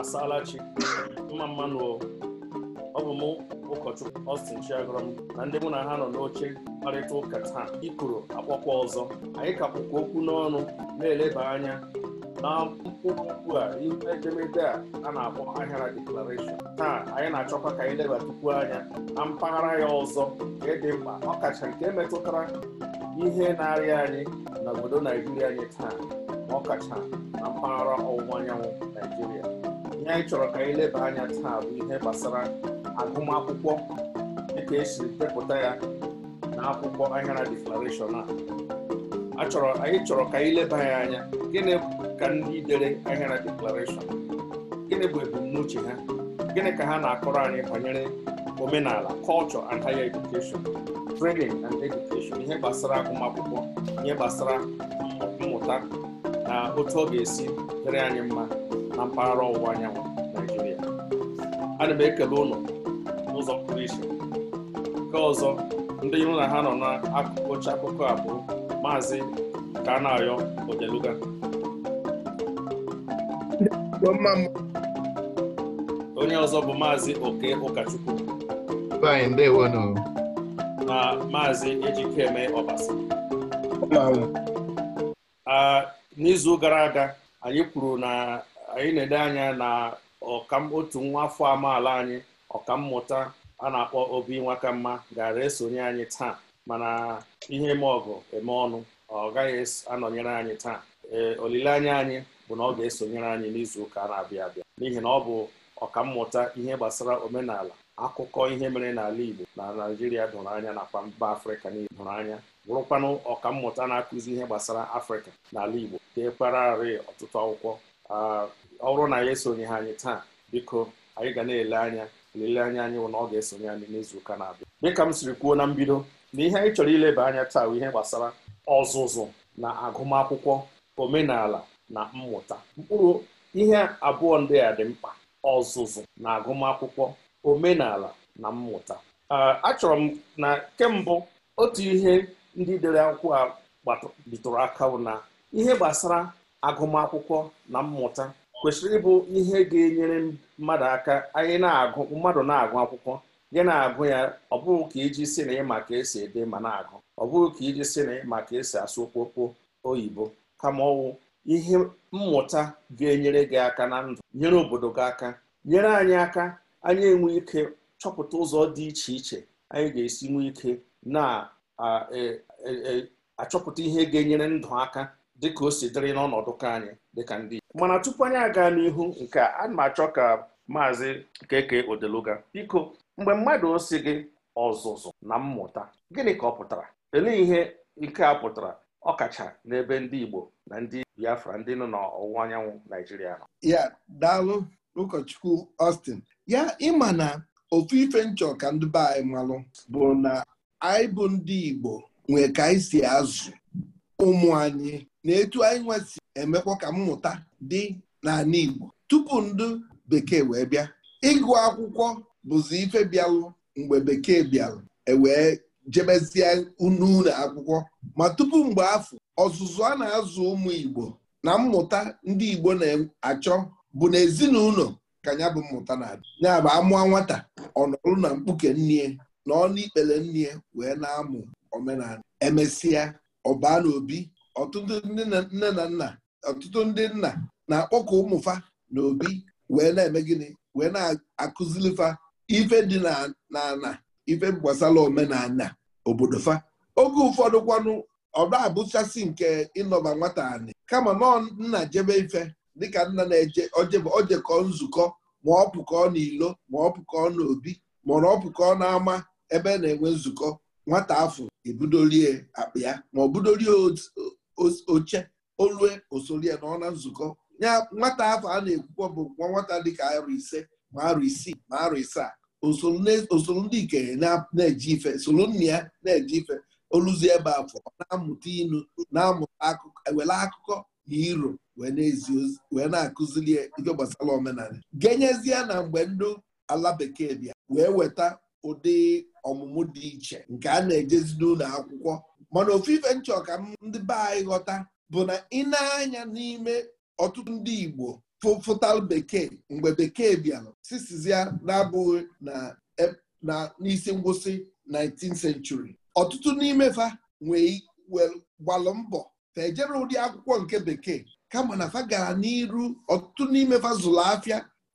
asaala chi mma mmanụ ọ bụ mụ ụkọchukwu Austin Chiagọrọ m na ndị mụ na ha nọ n'oche mkparịta ụka taa ikoro akpọkwa ọzọ anyị kapụkwa okwu n'ọnụ na-eleba anya na mkpụrụ a ihu edemede a a na-akpọ ahịara declaration taa anyị na-achọkwa ka anyị leba tupu anya na mpaghara ya ọzọ nke dị mkpa ọkacha nke metụtara ihe na-arịa anyị na obodo Naijiria anyị taa ọkacha na mpaghara ọwụwa anyanwụ ihe anyị chọrọ ka anyị leba anya taa bụ ihe gbasara agụmakwụkwọ dịka esiri depụta ya na akwụkwọ ahịara deklarashọn a anyị chọrọ ka anyị leba ya anya gịnị ka ndị dere ahịara deklarashọn gịnị bụ ebumnuche ha gịnị ka ha na-akọrọ anyị banyere omenala kọlchọ and higher education training and education ihe gbasara agụmakwụkwọ ihe gbasara mmụta na otu ọ ga-esi dịrị anyị mma na mpaghara ọwụwa anyanwụ naijiria ana m ekele ụlọ n'ụzọ pụrụ iche nke ọzọ ndị iru na ha nọ n'akụkụ oche akụkọ a bụ maazị Kanayo ojeluga onye ọzọ bụ maazị Oke Ụkachukwu na maazị Ejikeme Ọbasi n'izu gara aga anyị kwuru na anyị na-ede anya na ọkam otu nwa afọ amaala anyị ọkammụta a na-akpọ obi nwakamma gara esonye anyị taa mana ihe eme ọgụ eme ọnụ ọ gaghị anọnyere anyị taa ee olileanya anyị bụ na ọ ga-esonyere anyị n'izu ụka na-abịa abịa n'ihi na ọ bụ ọkammụta ihe gbasara omenala akụkọ ihe mere n'ala Igbo na naijiria dụrụ anya nakwa mba Afrịka niile dụrụ anya bụrụkwanụ ọkammụta na-akụzi ihe gbasara Afrịka n'ala Igbo dekwara arị ọtụtụ akwụkwọ ah, ọrụ na ya esonye ha anyị taa biko anyị ga na-ele anya lele anya anyị na ọ ga-esonye anyị n'izu ụka na-abịa dịka m siri kwuo na mbido na ihe anyị chọrọ ileba anya taa ihe gbasara ọzụzụ na agụmakwụkwọ omenala na mmụta mkpụrụ ihe abụọ ndị a dị mkpa ọzụzụ na agụmakwụkwọ omenala na mmụta achọrọ m na kembụ otu ihe ndị dere akwụkwọ a bitụrụ aka na ihe gbasara agụmakwụkwọ na mmụta kwesịrị ịbụ ihe ga-enyere mmadụ aka anyị na-agụ mmadụ na-agụ akwụkwọ gị na-agụ ya ọ bụghị ka iji si na ịma ka esi ede ma na-agụ ọ bụghị ka iji si na ịma ka esi asụ okpokpo oyibo kama ọwụ ihe mmụta ga-enyere gị aka na ndụ nyere obodo gị aka nyere anyị aka anyị enwe ike chọpụta ụzọ dị iche iche anyị ga-esi nwee ike na-achọpụta e, e, e, ihe ga-enyere ndụ aka dịka o si dịrị n'ọnọdụ ka anyị dịka ndị mana tupu anyị aga n'ihu nke a ma achọ ka maazị keke odeluga biko mgbe mmadụ si gị ọzụzụ na mmụta gịnị ka ọ pụtara elee ihe nke a pụtara ọkacha n'ebe ndị Igbo na ndị Biafra ndị nọ n'ọwụwa anyanwụ Naijiria nọ ya daalụ ụkọchukwu Austin ya ịma na ofu ife nchọ ka ndị be anyị malụ bụ na anyị bụ ndị Igbo nwee ka anyị si azụ ụmụ anyị na etu anyị nwesi emekwa ka mmụta dị n'ala Igbo tupu ndụ bekee wee bịa ịgụ akwụkwọ bụzi ife bịalụ mgbe bekee bịalụ ewee jebezie n'ụlọ akwụkwọ ma tupu mgbe afọ ọzụzụ a na-azụ ụmụ Igbo na mmụta ndị Igbo na-achọ bụ na ezinụlọ ka ya bụ mmụta na-adị ya bụ amụọ nwata ọ nọrụ na mkpuke nnie na ọnụ ikpere nnie wee na-amụ omenala emesịa ọbaa na obi ọtụtụ ndị nne na nna ọtụtụ ndị nna na-akpọkọ ụmụfa na obi wee na-eme gịnị wee na-akụzilifa ife dị na ife gbasara omenala obodo fa oge ụfọdụ kwanụ ọba abụchasị nke ịnọba nwata anị kama nọọ nna jebe ife dịka nna na-eje ojekọ nzukọ ma ọ pụkọ n'ilo ma ọ pụkọ n'obi ma ọ pụkọ n'ama ebe na-enwe nzukọ nwata afọ ebudorie akpa ya ma ọ budolie oche olue osolie nọ na nzukọ ya nwata afọ a na-ekwukwa bụ nwa nwata dịka arụ ise ma arụ isii ma arụ isaa osoro ndị ikenye na-eje ife soro nna ya na-eje ife oluzi ebe afọ na-amụta inu na-amụta akụkọ ewele akụkọ na iro wee na-akụziri ife gbasara omenala genyezie na mgbe ndị ala bekee bịa wee weta ụdị ọmụmụ dị iche nke a na-ejezi n'ụlọ akwụkwọ mana ofu ife nchọ ndị be anyị ghọta bụ na ị na-anya n'ime ọtụtụ ndị Igbo fụtal bekee mgbe bekee bịara sisizia na-abụghị na e, n'isi ngwụsị 19th century ọtụtụ n'ime fa nwee gbalụ mbọ fa ejere ụdị akwụkwọ nke bekee kama na fa gara n'iru ọtụtụ n'ime fa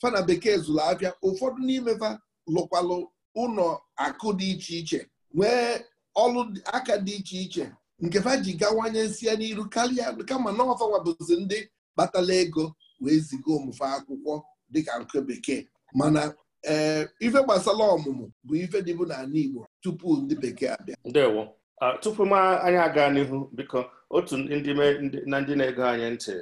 fa na bekee zụlụ ụfọdụ n'ime fa lụkwalụ ụlọ akụ dị iche iche nwee ọlụ aka dị iche iche nke fa ji gawanye nsị ya n'iru karịa kama na bụzi ndị kpatala ego wee ziga ụmụfe akwụkwọ dịka nke bekee mana ee eh, ife gbasara ọmụmụ bụ ife dịbụ n'ala Igbo tupu ndị bekee abịa ndewo ah, tupu m anyị aga n'ihu biko otu ndị na ndị na-ego anyị ntị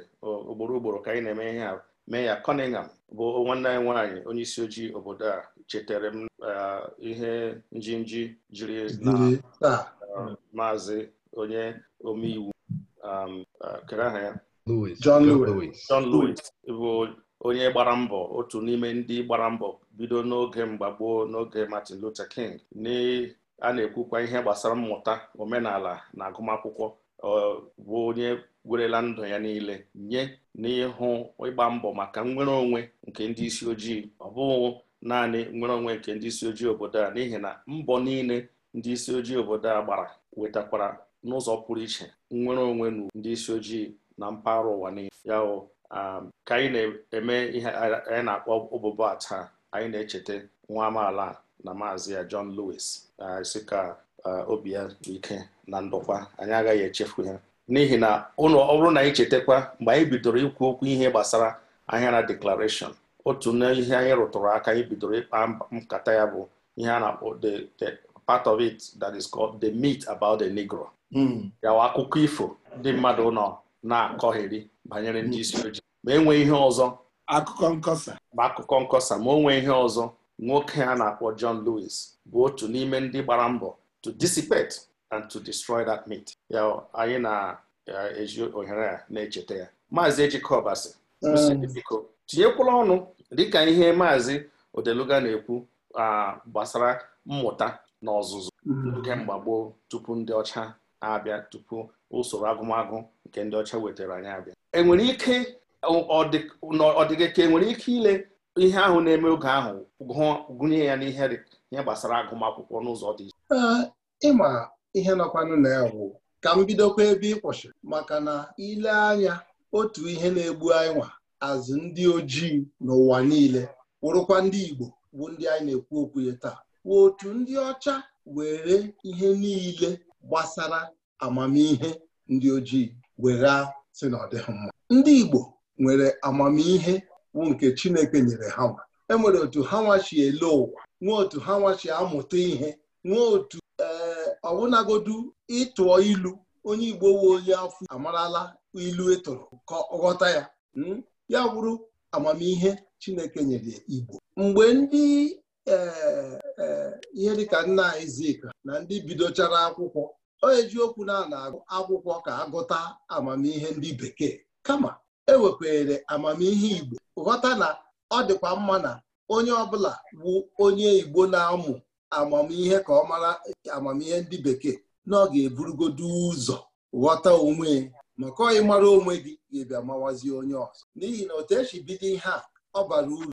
ugboro ugboro ka anyị na-eme ihe a mee ya Cunningham bụ nwanne anyị nwaanyị onye isi ojii obodo a chetere m e, ihe njinji jiri na e, maazị onye omeiwu um, e, kere aha ya John Lewis bụ onye gbara mbọ otu n'ime ndị gbara mbọ bido n'oge mgbagboo n'oge Martin Luther King a na-ekwukwa ihe gbasara mmụta omenala na agụmakwụkwọ bụ onye werela ndụ ya niile nye n'ịhụ ịgba mbọ maka nnwere onwe nke ndị isi ojii ọ bụghị naanị nwere onwe nke ndị isi ojii obodo a n'ihi na mbọ niile ndị isi ojii obodo a gbara wetakwara n'ụzọ pụrụ iche nnwere onwe na ndị isi ojii na mpaghara ụwa nile ya um, ka anyị na-eme ihe anyị na-akpọ ụbụbọ ata anyị na-echeta nwa amaala na maazị ya John Lewis si ka obi ya ike na ndokwa anyị agaghị echefu ya n'ihi na ọ bụrụ na anyị chetakwa mgbe anyị bidoro ikwu okwu ihe gbasara ahịara deklarashọn otu n'ihe anyị rụtụrụ aka anyị bidoro ịkpa nkata ya bụ ihe a na-akpọ the part of it that is called the meat about the negro hmm. yawa akụkọ ifo ndị mmadụ nọ na-akọgheri banyere ndị isi ojii ma enwe ihe ọzọ akụkọ nkọsa ma akụkọ nkọsa ma o ihe ọzọ nwoke a na-akpọ John Lewis bụ otu n'ime ndị gbara mbọ to dissipate and to destroy that meat. ya anyị na-eji ohere a na-echeta ya maazị Ejike hmm. biko tinyekwala ọnụ dịka ihe maazị odeluga na-ekwu gbasara mmụta na ọzụzụ nke mm. mgbagboo tupu ndị ọcha abịa tupu usoro agụmagụ nke ndị ọcha wetara anyị abịa enwere ike ọdịgịka enwere ike ile ihe ahụ na-eme oge ahụ gụnye ya n'ihe ihe gbasara agụmakwụkwọ n'ụzọ dị iche ịma ihe nọkwanụ na ka m bidokwa ebe ịkwụsị maka na ile anya otu ihe na-egbu anyị nwa azụ ndị ojii n'ụwa niile wụrụkwa ndị Igbo bụ ndị anyị na-ekwu okwu ya taa wụ otu ndị ọcha were ihe niile gbasara amamihe ndị ojii were sị na mma ndị Igbo nwere amamihe bụ nke Chineke nyere ha nwa e nwere otu ha nwachi ele ụwa nwee otu ha nwachi amụta ihe nwee otu ee eh, ọbụnagodu ịtụọ ilu onye Igbo wee onye afọ amarala ilu etoro ka ọ ghọta ya hmm? ya wụrụ amamihe Chineke nyere Igbo mgbe ndị e, e, ihe dịka nna izika na ndị bidochara akwụkwọ o okwu na a agụ akwụkwọ ka agụta amamihe ndị bekee kama ewepere amamihe Igbo ghọta na ọ dịkwa mma na onye ọbụla bụ onye Igbo na-amụ amamihe ka ọ mara amamihe ndị bekee na ọ ga-eburugodo ụzọ ghọta onwe maka ọyị mara onwe gị ga-ebịa mawazie onye ọzọ n'ihi na otu esi bido ihe a ọ bara uru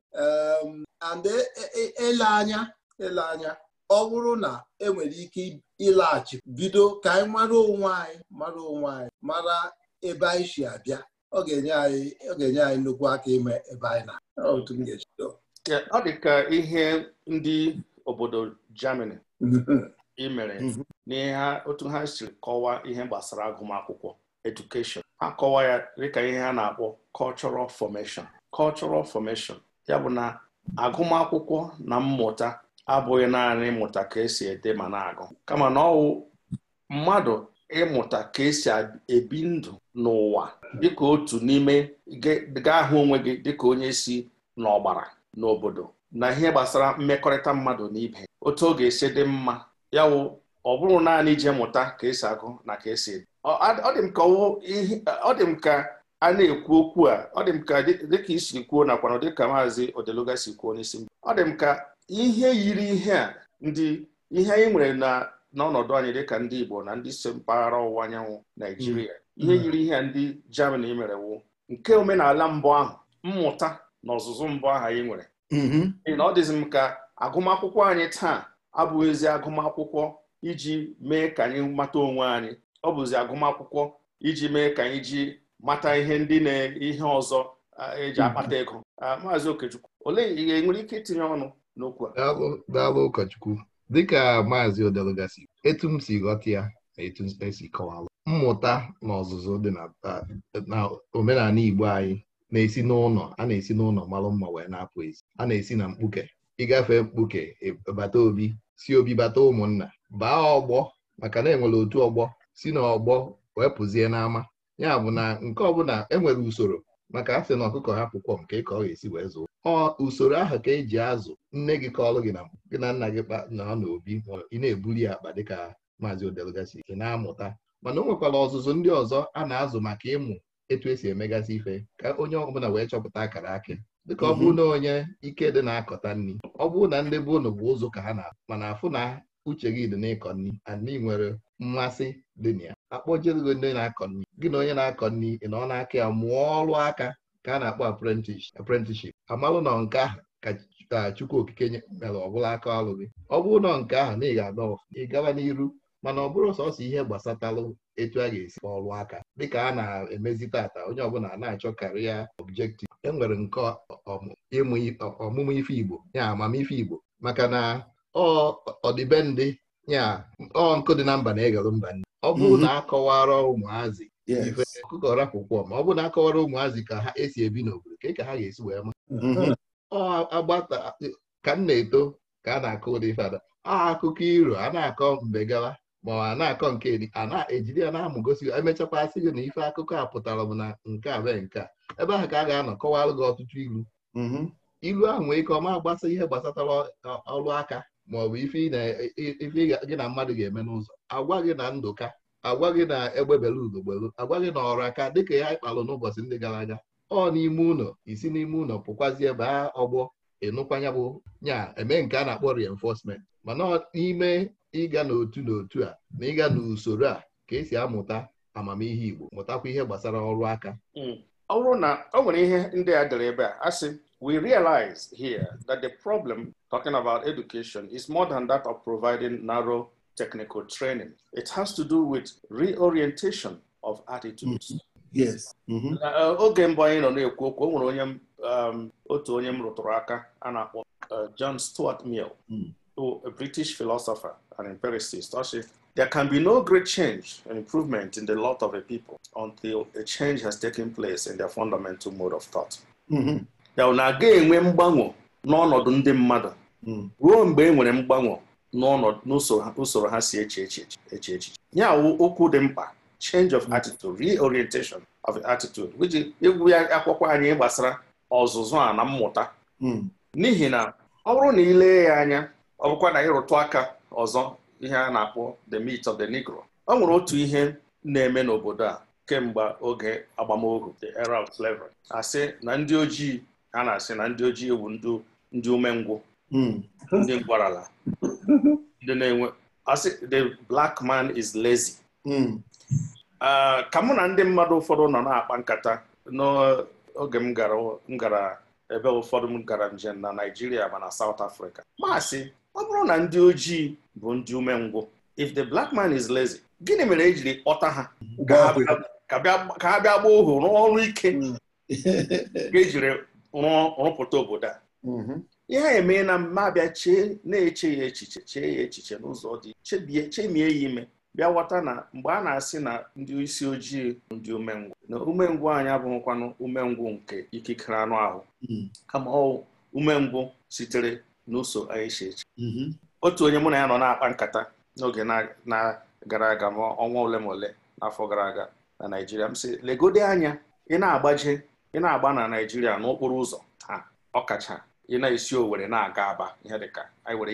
and e, e, e, ele anya ele anya ọ bụrụ na enwere ike ịlaghachi bido ka anyị mara onwe anyị mara onwe anyị mara ebe anyị si abịa ọ ga-enye anyị ọ ga-enye anyị nnukwu aka ime ebe anyị na otu ọ dị ka ihe ndị obodo Germany imere mhm. n'ihe otu ha siri kọwaa ihe gbasara agụmakwụkwọ education akọwa ya dịka ihe a na-akpọ cultural formation cultural formation ya bụ na agụmakwụkwọ na mmụta abụghị naanị ịmụta ka esi ede ma na-agụ kama na ọwụ mmadụ ịmụta ka esi ebi ndụ n'ụwa dịka otu n'ime gaa hụ onwe gị dịka onye si n'ọgbara n'obodo na ihe gbasara mmekọrịta mmadụ na ibe otu ọ ga-esi dị mma ya wụ ọ bụrụ naanị ije mụta ka esi agụ na ka esi ede ọ dị m ka ọ dị m ka a na-ekwu okwu a ọ dị m ka dịka isi kwuo nakwa na dịka maazị odeluga si kwuo n'isi m ọ dị m ka ihe yiri ihe a ndị ihe anyị nwere na n'ọnọdụ anyị dịka ndị Igbo na ndị si mpaghara ọwụwa anyanwụ Naijiria mm. ihe mm. yiri ihe a ndị Germany mere wu nke omenala mbụ ahụ mmụta na ọzụzụ mbụ ahụ anyị nwere mm-hmm. na ọ dịzi m ka agụmakwụkwọ anyị taa abụghịzi agụmakwụkwọ iji mee ka anyị mata onwe anyị ọ bụzi agụmakwụkwọ iji mee ka anyị ji mata ihe ndị na-ihe ọzọ eji akpata ego maazị Okechukwu olee ihe nwere ike itinye ọnụ n'okwu a daalụ ụkọchukwu dịka maazị odelugasi etu m si ghọta ya na etu esi kọwalụ mmụta na ọzụzụ dị na omenala Igbo anyị na-esi n'ụlọ a na-esi n'ụlọ malụ mma wee na-apụ ezi a na-esi na mkpuke ịgafe mkpuke e, bata obi si obi bata ụmụnna baa ọgbọ maka na enwere otu ọgbọ si n'ọgbọ wee pụzie n'ama ya bụ na nke ọbụla enwere usoro maka asị na ọkụkọ ha pụkwọ nke ka ọ ga-esi wee zụọ ọ usoro ahụ ka eji azụ nne gị kọọlụ gị na gị na nna gị na ọ obi ị na-ebuli akpa dịka maazị odelgasi ị na-amụta mana o nwekwara ọzụzụ ndị ọzọ a na-azụ maka ịmụ etu esi emegasị ife ka onye ọbụla wee chọpụta akara akị dịka ọ bụrụ mhm. na onye ike dị na-akọta nri ọ bụrụ na ndị be ụnụ bụ ụzụ ka ha na mana afụ na uche gị dị n'ịkọ nri and ị nwere mmasị dị na ya akpọjere gị ndị na-akọ nri gị na onye na-akọ nri ị nọ n'aka ya mụọ ọrụ aka ka a na-akpọ apprenticeship amalụ nọ nke ahụ ka Chukwu Okike mere ọbụla aka ọrụ gị ọ bụrụ na nke ahụ na ị ga-adọ ị gaba n'iru mana ọ bụrụ sọsọ ihe gbasatalụ etu a ga-esi ọrụ aka dịka a na-emezi tata onye ọbụla na-achọ karịa objektiv e nwere nke ọmụmụ ife Igbo ya amamife Igbo maka na ọdịbendị ya ọ nkụ dị na mba na-egelụ mba ndị ọ bụrụ mhm. na akọwara ụmụazị ife ọkụkọ rapụkwọ ma ọ bụrụ na akọwara ụmụazị ka ha esi ebi n'obodo ka ka ha ga-esi wee ma mhm. agbata ka m na-eto ka a na-akọ ụdị fada akụkọ iro a na-akọ mgbe gawa ma ọ na-akọ nke a na-ejide ya na-amụ gosi emechakwa asị gị na ife akụkọ a pụtara m na nke a be nke a ebe ahụ ka a ga-anọ kọwara gị ọtụtụ ilu mhm. ilu ahụ nwee ike ọma gbasa ihe gbasatara ọrụ aka ma ọ bụ ife gị na mmadụ ga-eme n'ụzọ agwa gị na ndụka agwa gị na egbebela udogbelu agwa gị na ọrụ aka dịka ya ịkpalụ n'ụbọchị ndị gara aga ọ n'ime ụlọ isi n'ime ụlọ pụkwazie baa ọgbọ ịnụkwanya bụ nya eme nke a na-akpọ rienfosment mana n'ime ịga n'otu n'otu a na ịga n'usoro a ka esi amụta amamihe Igbo mụtakwa ihe gbasara ọrụ aka ọ bụrụ na ọ nwere ihe ndị a dere ebe a asị we realize here that the problem talking about education is more than that of providing narrow technical training. It has to do with reorientation of attitudes. Mm-hmm. Yes. Mm-hmm. Uh, oge mbụ anyị nọ na-ekwu okwu onye um, otu onye m rụtụrụ aka a na-akpọ uh, John Stuart Mill mm. a British philosopher and empiricist ọsị there can be no great change and improvement in the lot of a people until a change has taken place in their fundamental mode of thought. Mm-hmm. ya na aga enwe mgbanwe n'ọnọdụ ndị mmadụ hmm. ruo mgbe e nwere mgbanwe n'usoro ha si eche echiche ya wụ okwu dị mkpa change of hmm. attitude reorientation of attitude egwu ya akwụkwọ anyị gbasara ọzụzụ a na mmụta hmm. n'ihi na ọ bụrụ na ilee ya anya ọ bụkwa na ịrụtụ aka ọzọ ihe a na-akpọ the meat of the negro ọ nwere otu ihe na-eme n'obodo a kemgbe oge agbamohu the era of slavery asị na ndị ojii a na-asị na ndị ojii bụ ndị umengwụ hmm. ndị ala. ndị na-enwe asị the black man is lazy hmm. ka mụ na ndị mmadụ ụfọdụ nọ na-akpa nkata n'oge m gara ebe ụfọdụ m gara njem na Naịjirịa ma na South Africa maasị ọ bụrụ na ndị ojii bụ ndị umengwụ if the black man is lazy gịnị mere e jiri kpọta ha ka ha bịa gbaa ohu n'ọrụ ike ga hmm. rụpụta obodo a mm-hmm. ihe a emee na mmabịa chee na-eche ya echiche chee ya echiche n'ụzọ dị chebie chemie ya ime bịa ghọta na mgbe a na-asị na ndị isi ojii ndị umengwụ na umengwụ anyị abụghịkwanụ umengwụ nke ikikere anụ ahụ mm-hmm. kama ọ umengwụ sitere n'ụsọ anyị si eche mm-hmm. otu onye mụ na ya nọ na-akpa nkata n'oge na-gara aga ma ọnwa ole ma ole n'afọ gara aga na Naịjirịa m sị legode anya ị na-agbaje ị na-agba na Naijiria n'okporo ụzọ ha ọkacha ị na-esi Owerri na-aga Aba ihe dịka anyị were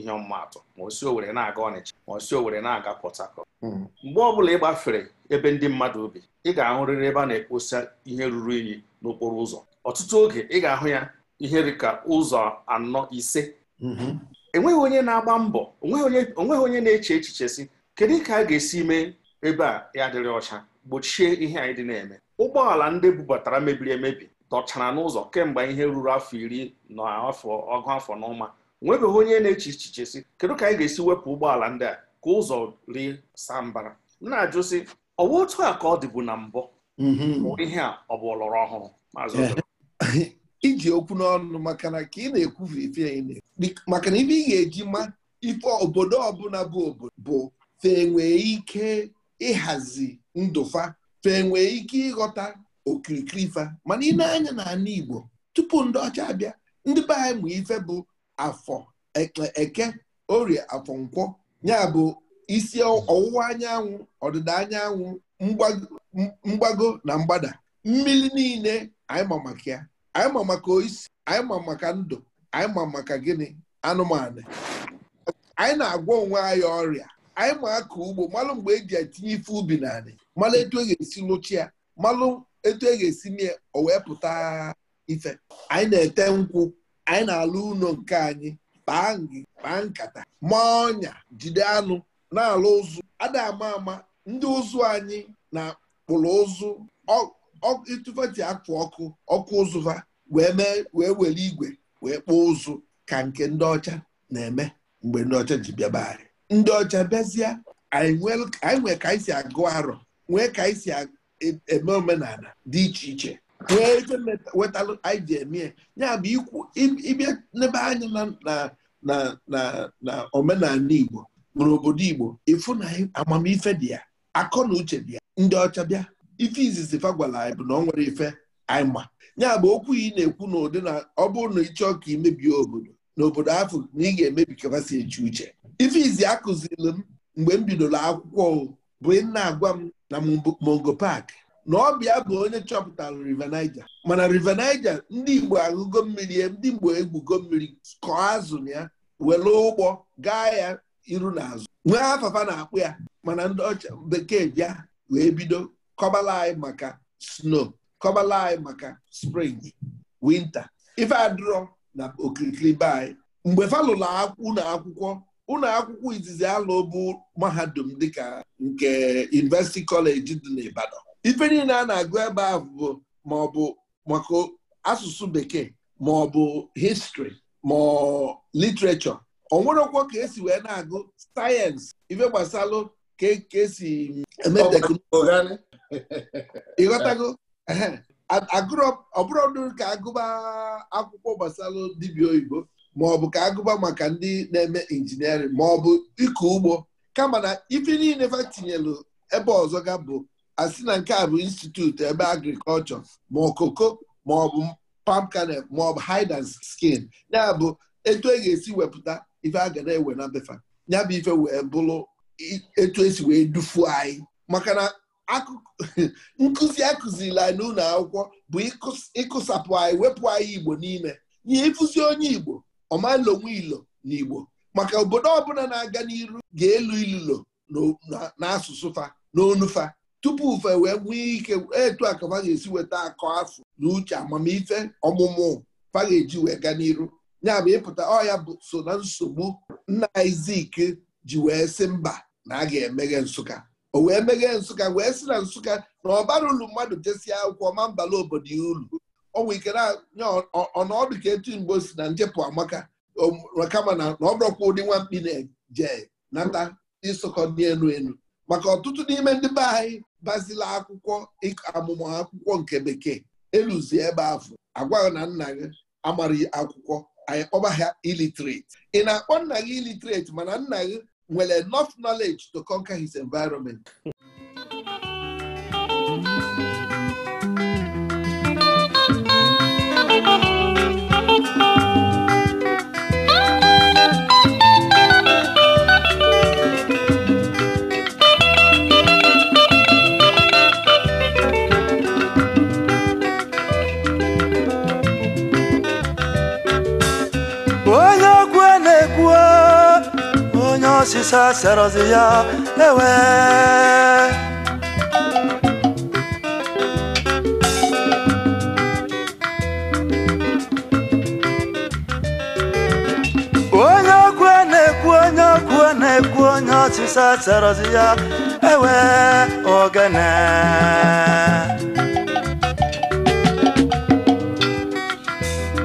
ihe ọmụmatụ ma osi owere Owerri na-aga Ọnịcha ma o si Owerri na-aga Port hmm. mgbe ọ bụla ị gbafere ebe ndị mmadụ obi ị ga-ahụrịrị ebe a na-ekposa ihe ruru unyi n'okporo ụzọ ọtụtụ oge ị ga-ahụ ya ihe dịka ụzọ anọ ise hmm. enweghị onye na-agba mbọ onweghị onye na-eche echiche si kedu ka a ga-esi mee ebe a ya adịrị ọcha gbochie ihe anyị dị na-eme ụgbọala ndị bubatara mebiri emebi dọchara n'ụzọ kemgbe ihe ruru afọ iri na afọ ọgụ afọ na ụma nwebeghị onye na-eche echiche si kedu ka anyị ga-esi wepụ ụgbọala ndị a ka ụzọ rie saa mbara m na-ajụ sị ọwa otu a ka ọ dịbu na mbụ mm-hmm. ihe a ọ bụ ọlọrọ ọhụrụ eh. iji okwu n'ọnụ maka na ka ị na-ekwufe ife maka na ife ị ga-eji ma ife obodo ọbụla bụ obodo bụ fe nwee ike ịhazi ndụfa fa enwee ike ịghọta okirikiri ife mana ị na-anya na ala Igbo tupu ndị ọcha abịa ndị be anyị ma ife bụ afọ eke orie afọ nkwọ ya bụ isi ọwụwa anyanwụ ọdịda anyanwụ mgbago na mgbada mmiri niile anyị ma maka ya anyị ma maka isi anyị ma maka ndụ anyị ma maka gịnị anụmanụ anyị na-agwọ onwe anyị ọrịa anyị ma aka ugbo malụ mgbe eji etinye ife ubi na anị malụ etu e ga-esi lụchie ya malụ etu e ga-esi mie o wee pụta ife anyị na-ete nkwụ anyị na-alụ ụlọ nke anyị kpaa ngị kpaa nkata maa ọnya jide anụ na-alụ ụzụ ada ama ama ndị ụzụ anyị na-akpụrụ ụzụ ịtụfeti akụ ọkụ ọkụ ụzụva wee mee wee were igwe wee kpụọ ụzụ ka nke ndị ọcha na-eme mgbe ndị ọcha ji bịaba anyị ndị ọcha bịazie anyị nwe ka anyị si agụ arọ nwee ka anyị e si e, eme omenala dị iche iche nwee ife wetalụ anyị ji ya bụ ikwu ịbịa n'ebe anyị na omenala Igbo bụrụ obodo Igbo ịfụ na amamife dị ya akọ na uche dị ya ndị ọcha bịa ife izizi fa gwara anyị bụ na ọ nwere ife anyị ma ya bụ okwu ị na-ekwu na ụdị na ọ bụrụ na ịchọọ ka imebie obodo na obodo afọ na ị ga-emebi kafasi echi uche ife izi akụziri m mgbe m bidoro akwụkwọ bụ na-agwa m na Mongo Park na ọbịa bụ onye chọpụtara River Niger mana River Niger ndị Igbo agụgo mmiri ya ndị Igbo egwugo mmiri kọọ azụ na ya were ụgbọ gaa ya iru na azụ nwee afafa na-akpụ ya mana ndị ọcha bekee bịa wee bido kọbala anyị maka snow kọbala anyị maka spring winter ife na okirikiri anyị mgbe fa akwụ na akwụkwọ ụlọ akwụkwọ izizi alụ bụ mahadum dịka nke University College dị n'Ibadan ife niile a na-agụ ebe ahụ bụ ma ọ bụ maka asụsụ bekee ma ọ bụ histrị ma literature ọ nwerekwa ka esi wee na-agụ sayensị ife gbasalụ ka e, esi eme teknụzụ ịghọtago agụrụ ọbụrụ ka agụba akwụkwọ gbasalụ dibịa oyibo maọbụ ka agụba maka ndị na-eme injiniarịn maọbụ ịkọ ugbo kama na ife niile fa tinyelu ebe ọzọ ga bụ asị na nke a bụ institut ebe agrikọlchọ ma okoko maọbụ palm kernel maọbụ hide and skin ya bụ etu e ga-esi wepụta ife a ga na-ewe na befa ya bụ ife wee bụrụ etu esi wee dufuo anyị maka na nkụzi akụziri anyị n'ụlọ akwụkwọ bụ ịkụsapụ anyị wepụ anyị igbo n'ime nye ịfụzi onye igbo ọma onwe ilo na Igbo maka obodo ọbụla na-aga n'iru ga-elu ilulo n'asụsụ fa n'onufa tupu ufe wee nwee ike etu a ga-esi weta akọ afọ na uche amamife ọmụmụ fa ga-eji wee gaa n'iru ya bụ ịpụta ọya bụ so na nsogbu nna Izik ji wee sị mba na a ga-emeghe Nsụka o wee meghe Nsụka wee sị na Nsụka na ọbara ulu mmadụ jesie akwụkwọ ma mbala obodo ya ulu ọnwa ikere ọnọdụ ka etu mgbe o si na njepụ amaka kama na ọ bụrụkwa ụdị nwa na-eje nata ịsụkọ dị elu elu maka ọtụtụ n'ime ndị be anyị bazila akwụkwọ amụmụ akwụkwọ nke bekee eluzi ebe afọ agwaghị na nna gị amaghị akwụkwọ anyị kpọba ha iliterate. ị na-akpọ nna gị iliterate mana nna gị nwere enough knowledge to conquer his environment ọsịsa serọzi ya ewe onye ọkụ na-ekwu onye ọkụ na-ekwu onye ọsịsa serọzi ya ewe ogene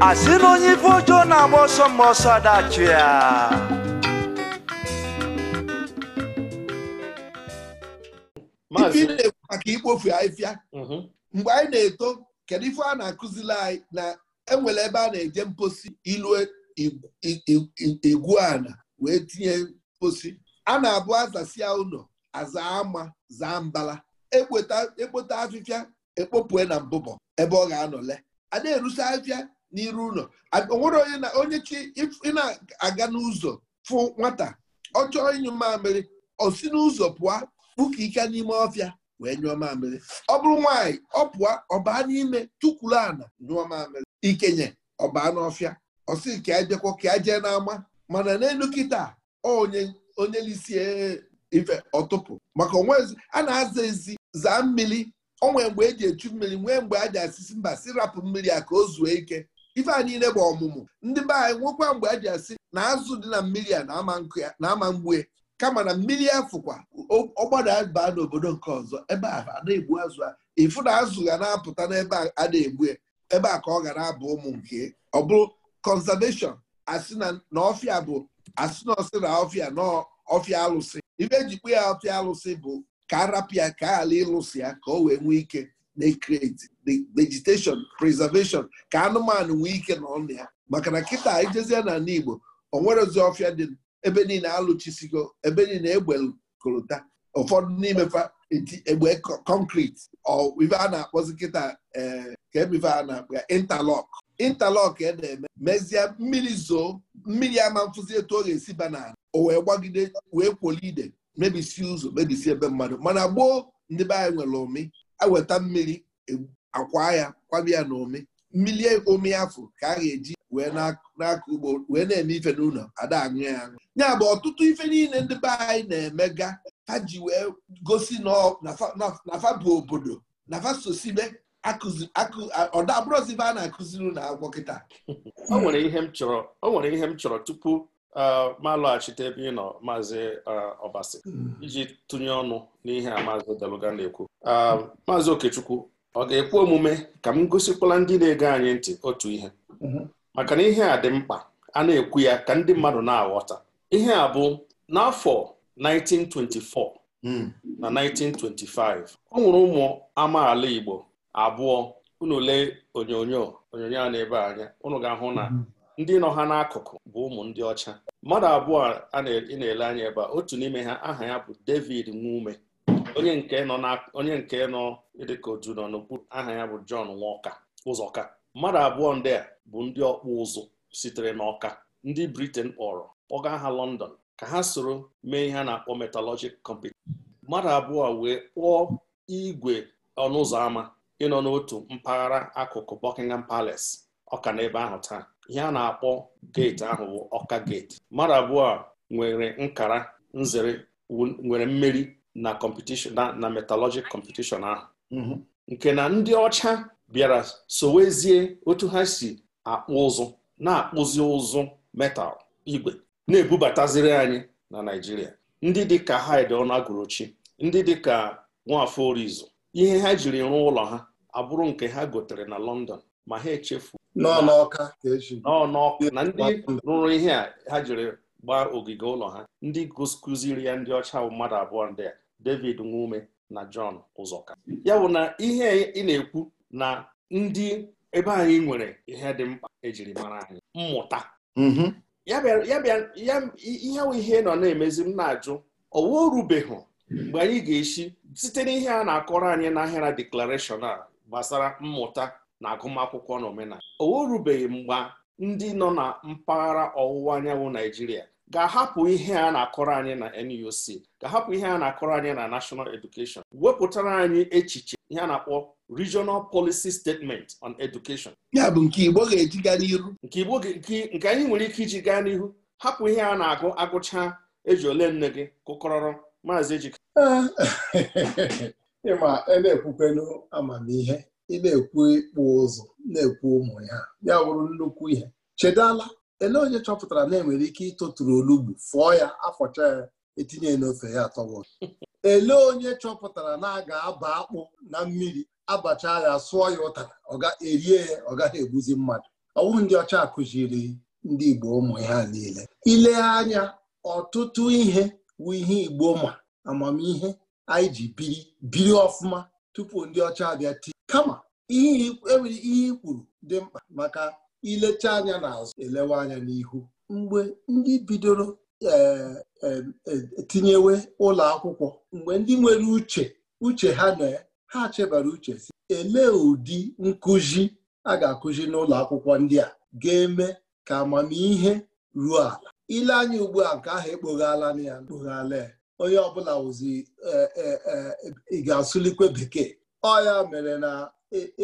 asị na onye ife ojo na-agba ọsọ mgbe ọsọ adachi ya ifia mm-hmm. mgbe anyị na-eto kedu ife a na-akụzili anyị na enwere ebe a na-eje mposi ilu e, igwu ana wee tinye mposi a na-abụ azasia ụlọ aza ama zaa mbala ekpota e afịfịa ekpopue na mbụbọ ebe ọ ga-anọle a na-erusi afịa n'iru ụlọ onwere onye na onye chi ị aga n'ụzọ fụ nwata ọ chọọ ịnyụ mamịrị o si n'ụzọ pụọ kpuka ike n'ime ọfịa wee nyụọ mamịrị ọ bụrụ nwaanyị ọ pụọ ọbaa n'ime tukwuru ana nyụọ mamịrị ikenye ọbaa n'ọfịa ọsị ka ajekwa ka ajee n'ama mana n'elu kịta onye onye lisi e, ife ọtụpụ maka onwezi a na-aza ezi zaa mmiri onwee mgbe eji echu mmiri nwee mgbe a ji asịsị mba si rapụ mmiri a ka o zuo ike ife a niile bụ ọmụmụ ndị be anyị nwekwa mgbe a ji asị na azụ dị na mmiri a na-ama mgbue kama na mmiri afụkwa ọgbada baa n'obodo nke ọzọ ebe a na-egbu azụ a ịfụ na azụ ga na-apụta n'ebe a na-egbu ebe a ka ọ ga na-abụ ụmụ nke ọ bụrụ conservation asị na ọfịa bụ asị na na ọfịa na ọfịa alụsị ibe ejikpe ya ọfịa alụsị bụ ka arapịa ka ala ịlụsị ya ka o wee nwee ike na-ekreti vegetation preservation ka anụmanụ nwee ike na ọnụ ya maka na kịta ijezie na Igbo o nwerezi ọfịa dị ebe niile alụchisigo ebe niile egbekolota ụfọdụ n'ime fa egbe ọ ife a na-akpọzi kịta eh, ka emife a na-akpa intalọk intalọk e na-eme mezie mmiri zoo mmiri ama mfụzi etu ọ ga-esi banana o wee gbagide wee kwolide mebisi ụzọ mebisi ebe mmadụ mana gboo ndị be anyị nwere ụmị aweta mmiri e, akwa ya kwabia ya na ụmị mmiri ụmị afọ ka a ga-eji wee ugbo wee na-eme ife n'ụlọ ada aṅụ ya aṅụ ya bụ ọtụtụ ife niile ndị be anyị na-emega ha ji wee gosi na bụ obodo na sosibe ọdabụrụzibe a na-akụziri na agwọ kịta o nwere ihe m chọrọ o nwere ihe m chọrọ tupu ma lọghachite ebe ị nọ maazị ọbasi hmm. iji tụnye ọnụ n'ihe a maazị Deluga na-ekwu maazị Okechukwu ọ ga-ekwe omume ka m gosikwala ndị na-ege anyị ntị otu ihe mhm. maka na ihe a dị mkpa a na-ekwu ya ka ndị mmadụ na-aghọta ihe a bụ n'afọ 1924 hmm. na 1925 ọ nwụrụ ụmụ amaala Igbo abụọ unu onyonyo onyonyo a na-ebe anya ụnụ ga-ahụ na hmm. ndị nọ ha n'akụkụ bụ ụmụ ndị ọcha mmadụ abụọ a na-ele anya ebe otu n'ime ha aha ya bụ David Nwume onye nke nọ dịka otu nọ n'okpuru aha ya bụ John Walker Ụzọka mmadụ abụọ ndị a bụ ndị ọkpụ ụzụ sitere n'ọka ndị Britain kpọrọ kpọga ha London ka ha soro mee ihe a na-akpọ metallurgic competition mmadụ abụọ wee kpụọ igwe ọnụ ụzọ ámá ịnọ n'otu mpaghara akụkụ Buckingham Palace ọka ebe ahụ taa ihe a na-akpọ geeti ahụ bụ ọka geeti mmadụ abụọ nwere nkara nzere nwere mmeri na competition na competition ahụ mhm. nke na ndị ọcha bịara sowezie otu ha si akpụ ụzụ na-akpụzi ụzụ metal igwe na-ebubataziri anyị na Naịjirịa ndị dịka Hyde Ọnagụrọchi ndị dịka Nwafọ Orizu ihe ha jiri rụọ ụlọ ha abụrụ nke ha gotere na London ma ha echefu n'ọnọka e na ndị rụrụ ihe a ha jiri gbaa ogige ụlọ ha ndị kụziri ya ndị ọcha mmadụ abụọ ndị a David Nwume na John Ụzọka ya bụ na ihe ị na-ekwu na ndị ebe anyị nwere ihe dị mkpa ejiri mara anyị mmụta mm-hmm. ihe ahụ ihe nọ na-emezi m na-ajụ ọwa orubeghị mgbe anyị ga-esi site n'ihe a na-akọrọ anyị n'ahịara deklarashọn a gbasara mmụta na agụmakwụkwọ na omenala owa orubeghị mgbe ndị nọ na mpaghara ọwụwa anyanwụ Naijiria ga-ahapụ ihe a na-akọrọ anyị na NUC ga-ahapụ ihe a na-akọrọ anyị na nashọnal edukeshọn. wepụtara anyị echiche ihe a na-akpọ regional policy statement on education ya bụ nke Igbo ga-eji gaa n'ihu nke Igbo nke anyị nwere ike iji gaa n'ihu hapụ ihe a na-agụ agụcha eji ole nne gị kụkọrọrọ maazị ejika ịma e na-ekwukwenu amamihe ị na-ekwu ịkpụ ụzụ na-ekwu ụmụ ya ya bụrụ nnukwu ihe chedala ele onye chọpụtara na enwere ike ịtụtụrụ olugbu fụọ ya afọcha ya etinye n'ofe ya atọbọ ele onye chọpụtara na a ga-aba akpụ na mmiri abacha ya sụọ ya ụtara ọ ga-erie ya ọ gaghị egbuzi mmadụ ọwụ ndị ọcha kụziri ndị Igbo ụmụ ya niile ile anya ọtụtụ ihe bụ ihe Igbo ma amamihe anyị ji biri biri ọfụma tupu ndị ọcha abịa tii kama ihe enwere ihe ikwuru dị mkpa maka ilecha anya n'azụ elewe anya n'ihu mgbe ndị bidoro Eh, eh, eh, tinyewe ụlọ akwụkwọ mgbe ndị nwere uche uche ha na ha chebara uche si elee ụdị nkụzi a ga-akụzi n'ụlọ akwụkwọ ndị a ga-eme ka amamihe ruo ala ile anya ugbu a nke ahụ ekpoghala na ya kpoghala ya onye ọbụla wụzi ị ga-asụlikwe bekee ọ ya mere na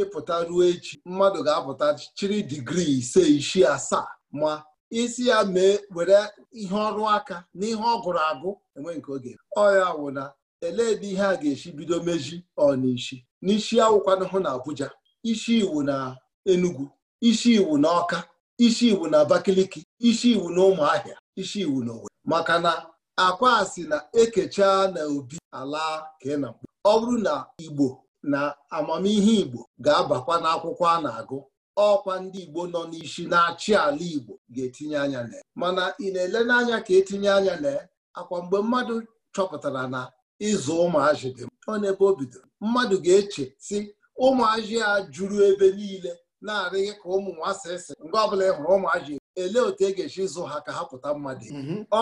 ịpụta ruo echi mmadụ ga-apụta chiri digrii ise isii asaa ma isi ya mee were ihe ọrụ aka na ihe ọ gụrụ agụ enwe nke oge ọya wụ na elee ebe ihe a ga-esi bido meji ọnịshi n'isi awụkwana hụ na Abuja isi iwu na Enugu isi iwu na Ọka isi iwu na Abakaliki isi iwu na Ụmụahịa isi iwu na Owerri maka na akwa si na ekecha na obi ala ka ọ bụrụ na Igbo na amamihe Igbo ga-abakwa n'akwụkwọ a na-agụ ọkwa ndị Igbo nọ n'ishi na-achị ala Igbo ga-etinye anya na mana ị na-ele n'anya ka etinye anya na akwa mgbe mmadụ chọpụtara na ịzụ ụmụazị dị ọ n'ebe o bidoro mmadụ ga-eche si ụmụazị a juru ebe niile na-arịghị ka ụmụ nwasịsị mgbe ọbụla ị hụrụ ụmụazị elee otu e ga-esi zụ ha ka ha pụta mmadụ mhm. ọ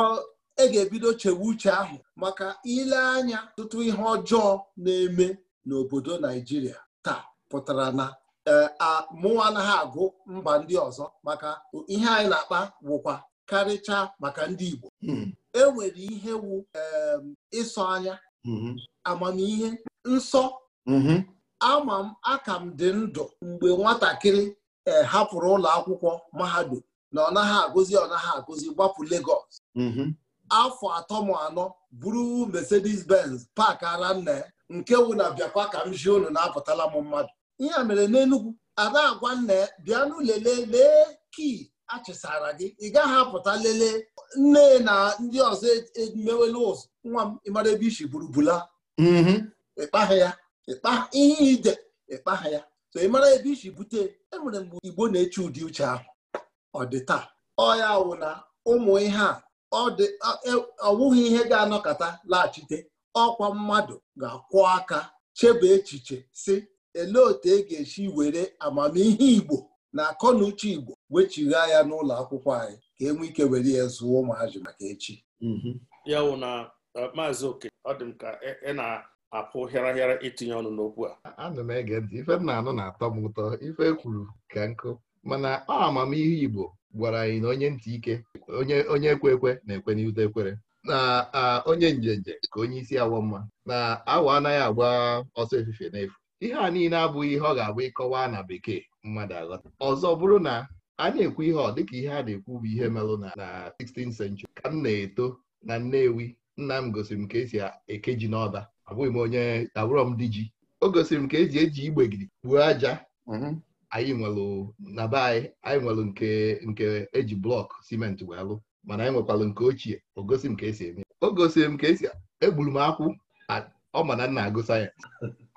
e ga-ebido chewe uche ahụ maka ile anya tụtụ ihe ọjọọ na-eme n'obodo Naijiria taa pụtara na mụwa anaghị agụ mba ndị ọzọ maka ihe anyị na-akpa wụkwa karịchaa maka ndị Igbo hmm. e nwere ihe wu ịsọ anya hmm. amamihe nsọ hmm. ama m aka m dị ndụ mgbe nwatakịrị e, hapụrụ ụlọ akwụkwọ mahadum na ọ naghị agụzi ọ naghị agụzi gbapụ Lagos afọ atọ m anọ buru Mercedes Benz pak ara nna nke wụ na biakwa ka m ji unu na-apụtala m mmadụ ihe a mere n'enugwu ada agwa nna ya bịanụ lelee lee kii achịsara gị ị gaghị apụta lelee nne na ndị ọzọ emewela e ụzọ nwa m ịmara ebe isi burubula mm-hmm. ịkpaghị ya ihe ide ịkpaghị ya so ị mara ebe isi bute enwere mgbe igbo na-eche ụdị uche ahụ ọ dị taa ọ ya wụ na ụmụ ihe a ọ e, wụghị ihe ga-anọkọta laghachite ọkwa mmadụ ga-akwụ aka chebe echiche si elee otu e ga-esi were amamihe Igbo na akọ na uche Igbo wechigha ya n'ụlọ akwụkwọ anyị ka e nwee ike were ya zụọ ụmụazị maka echi mhm. ya na uh, maazị oke ọ dị m ka ị e, e na-apụ hịara hịara itinye ọnụ n'okwu a Anụ m ege ntị ife m na-anụ na-atọ m ụtọ ife kwuru ka nkụ mana ọ amamihe Igbo gwara anyị na onye ntị ike onye ekwe ekwe na-ekwe n'ute ekwere na onye njenje ka onye isi awọ mma na awa anaghị agba ọsọ efife n'efu ihe a niile abụghị ihe ọ ga-abụ ịkọwa na bekee mmadụ aghọta ọzọ bụrụ na a na-ekwu ihe ọ dịka ihe a na-ekwu bụ ihe melụ na 16th century ka m na-eto na Nnewi nna m gosiri m ka esi eke ji n'ọba abụghị m onye abụrọ m di ji o gosiri m ka eji eji gidi kpuo aja mm-hmm. anyị nwelụ na be anyị anyị nwelụ nke nke eji blọk simenti wee lụ mana anyị nwekwalụ nke ochie o gosi m ka esi eme o gosiri m ka esi egburu m akwụ ọ ma na nna agụ sayensị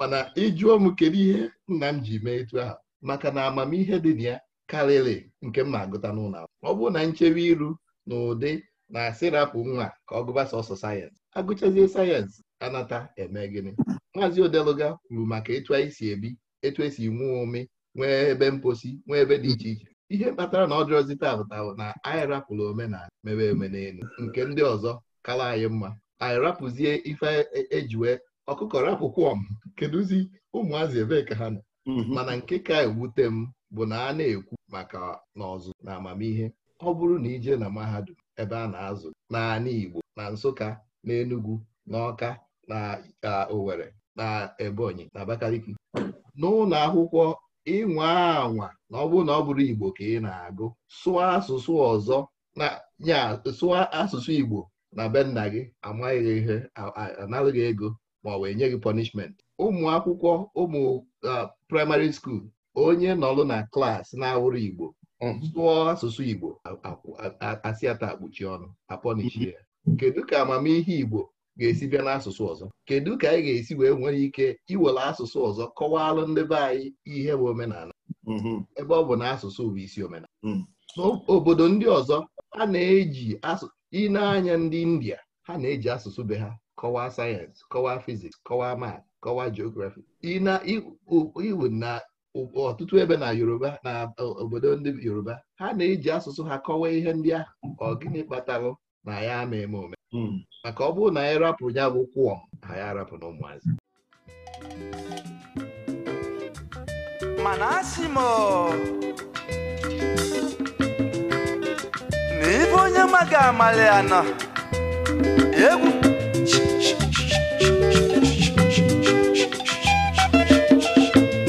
mana ịjụọ m kedu ihe nna m ji mee etu ahụ maka na amamihe dị na ya karịrị nke m na-agụta n'ụlọ ọ bụrụ na nchebe iru na ụdị na asịrapụ nwa ka ọ gụba sọsọ sayensị agụchazie sayensị anata eme gịnị maazị odeluga kwuru maka etu anyị si ebi etu esi nwee ome nwee ebe mposi nwee ebe dị iche iche ihe kpatara na ọ taa taụtaụ na anyị rapụrụ omenala mebe omenelu nke ndị ọzọ kara anyị mma anyị rapụzie ife ejiwe e, e ọkụkọrọ akwụkwọ m kedụzi ụmụazị ebee ka ha nọ mhm. mana nke ka ewute m bụ na a na-ekwu maka n'ọzụ na amamihe ọ bụrụ na ije na mahadum ebe a na-azụ n'ala Igbo na Nsụka na Enugu na Ọka na owere na Ebonyi na Abakaliki n'ụlọ akwụkwọ ịnwa anwa na ọ bụrụ na ọ bụrụ Igbo ka ị na-agụ sụọ asụsụ ọzọ na nya sụọ asụsụ Igbo na be nna gị amaghị ihe ego ma ọ wee nye gị punishment ụmụ akwụkwọ ụmụ uh, praịmarị skuul onye nọlụ na klaasị na-awụrụ Igbo um, sụọ asụsụ Igbo asịata akpuchi ọnụ apọnichi ya kedu ka amamihe Igbo ga-esi bịa n'asụsụ ọzọ kedu ka anyị ga-esi wee nwere ike iwere asụsụ ọzọ kọwaalụ ndị be anyị ihe bụ omenala mm-hmm. ebe ọ bụ na asụsụ bụ isi omenala n'obodo mm. ndị ọzọ a na-eji ịna anya ndị India ha na-eji asụsụ be ha kọwaa sayensị kọwaa fiziks kọwaa mat kọwaa geografi iwu na ọtụtụ ebe na yoruba na obodo ndị yoruba ha na-eji asụsụ ha kọwaa ihe ndị ahụ ọ gịnị na ya ama eme ome hmm. maka ọ bụrụ na anyị rapụrụ ya bụ kwụọm ha ya rapụ na ụmụazị mana asị m na onye maga amalị anọ egwu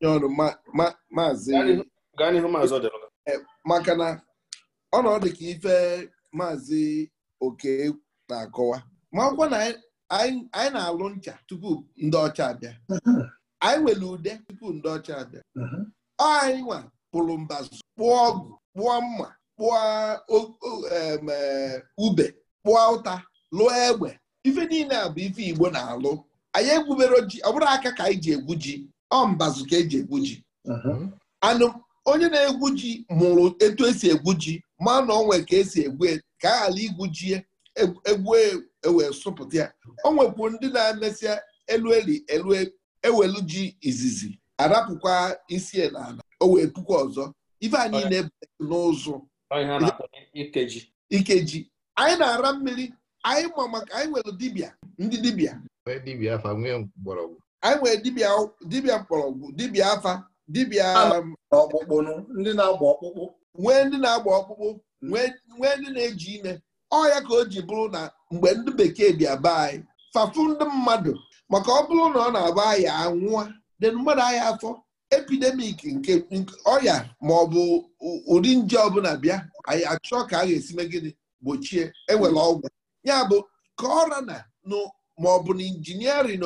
nye ọrụ maazị eh, maka na ọnọdụ ka ife maazị oke na-akọwa ma akwụkwọ na anyị na-alụ ncha tupu ndị ọcha abịa anyị nwere ude tupu ndị ọcha abịa ọ anyị nwa pụrụ mbazụ kpụọ ọgụ kpụọ mma kpụọ eh, ube kpụọ ụta lụọ egbe ife niile a bụ ife Igbo na-alụ anyị egwubere ji ọ bụrụ aka ka anyị ji egwu ji ọ mbazụ ka eji egwu ji uh-huh. anụ onye na-egwu ji mụrụ etu esi egwu ji ma na onwe ka esi egwu e, ka a ghara igwu ji egwu e, e ewee sụpụta ya o nwekwu ndị na-emesịa elu eli elu ewelu ji izizi arapụkwa isi n'ala o wee pụkwa ọzọ ife anyị na-ebu n'ụzụ ikeji anyị na-ara mmiri anyị ma maka anyị nwere dibịa ndị dibịa dibịa nwee mgbọrọgwụ. anyị nwere dibịa dibịa mgbọrọgwụ dibịa afa dibịa ah. um, ndị na-agba ọkpụkpụ nwee ndị na-agba ọkpụkpụ nwee ndị na-eji ime ọya ka o ji bụrụ na mgbe ndị bekee bịa be anyị fafu ndị mmadụ maka ọ bụrụ na ọ na-agba aya anwụọ dị mmadụ ahịa afọ epidemik nke ọya ma ọ bụ ụdị nje ọbụla bịa anyị achọ ka a ga-esi me gịnị gbochie enwere ọgwụ ya bụ ka ọra na bụ na injiniarịn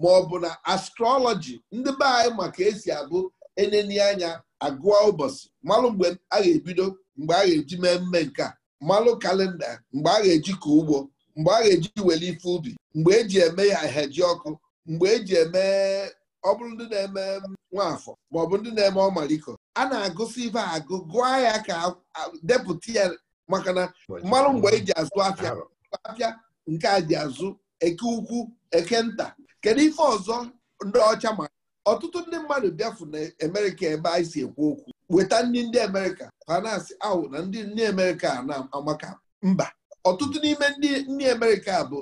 ma ọ bụ na astrọlọji ndị be anyị maka esi abụ eneni anya agụọ ụbọchị malụ mgbe a ga-ebido mgbe a ga-eji mee mme nke a malụ kalenda mgbe a ga-eji ka ugbo mgbe a ga-eji wele ife ubi mgbe eji eme ya heji ọkụ mgbe eji eme ọ bụrụ ndị na-eme nwafọ ma ọ bụ ndị na-eme ọmaliko a na-agụsị ife agụ gụọ ya ka depụta ya maka na mmanụ mgbe eji azụ afịa afịa nke a ji azụ eke ukwu eke nta kedu ife ọzọ ndị ọcha ma ọtụtụ ndị mmadụ bịafu na emerika ebe anyị si ekwu okwu weta ndị ndị Amerịka ha ahụ na ndị nne Amerịka na-amaka mba ọtụtụ n'ime ndị ndị Amerịka bụ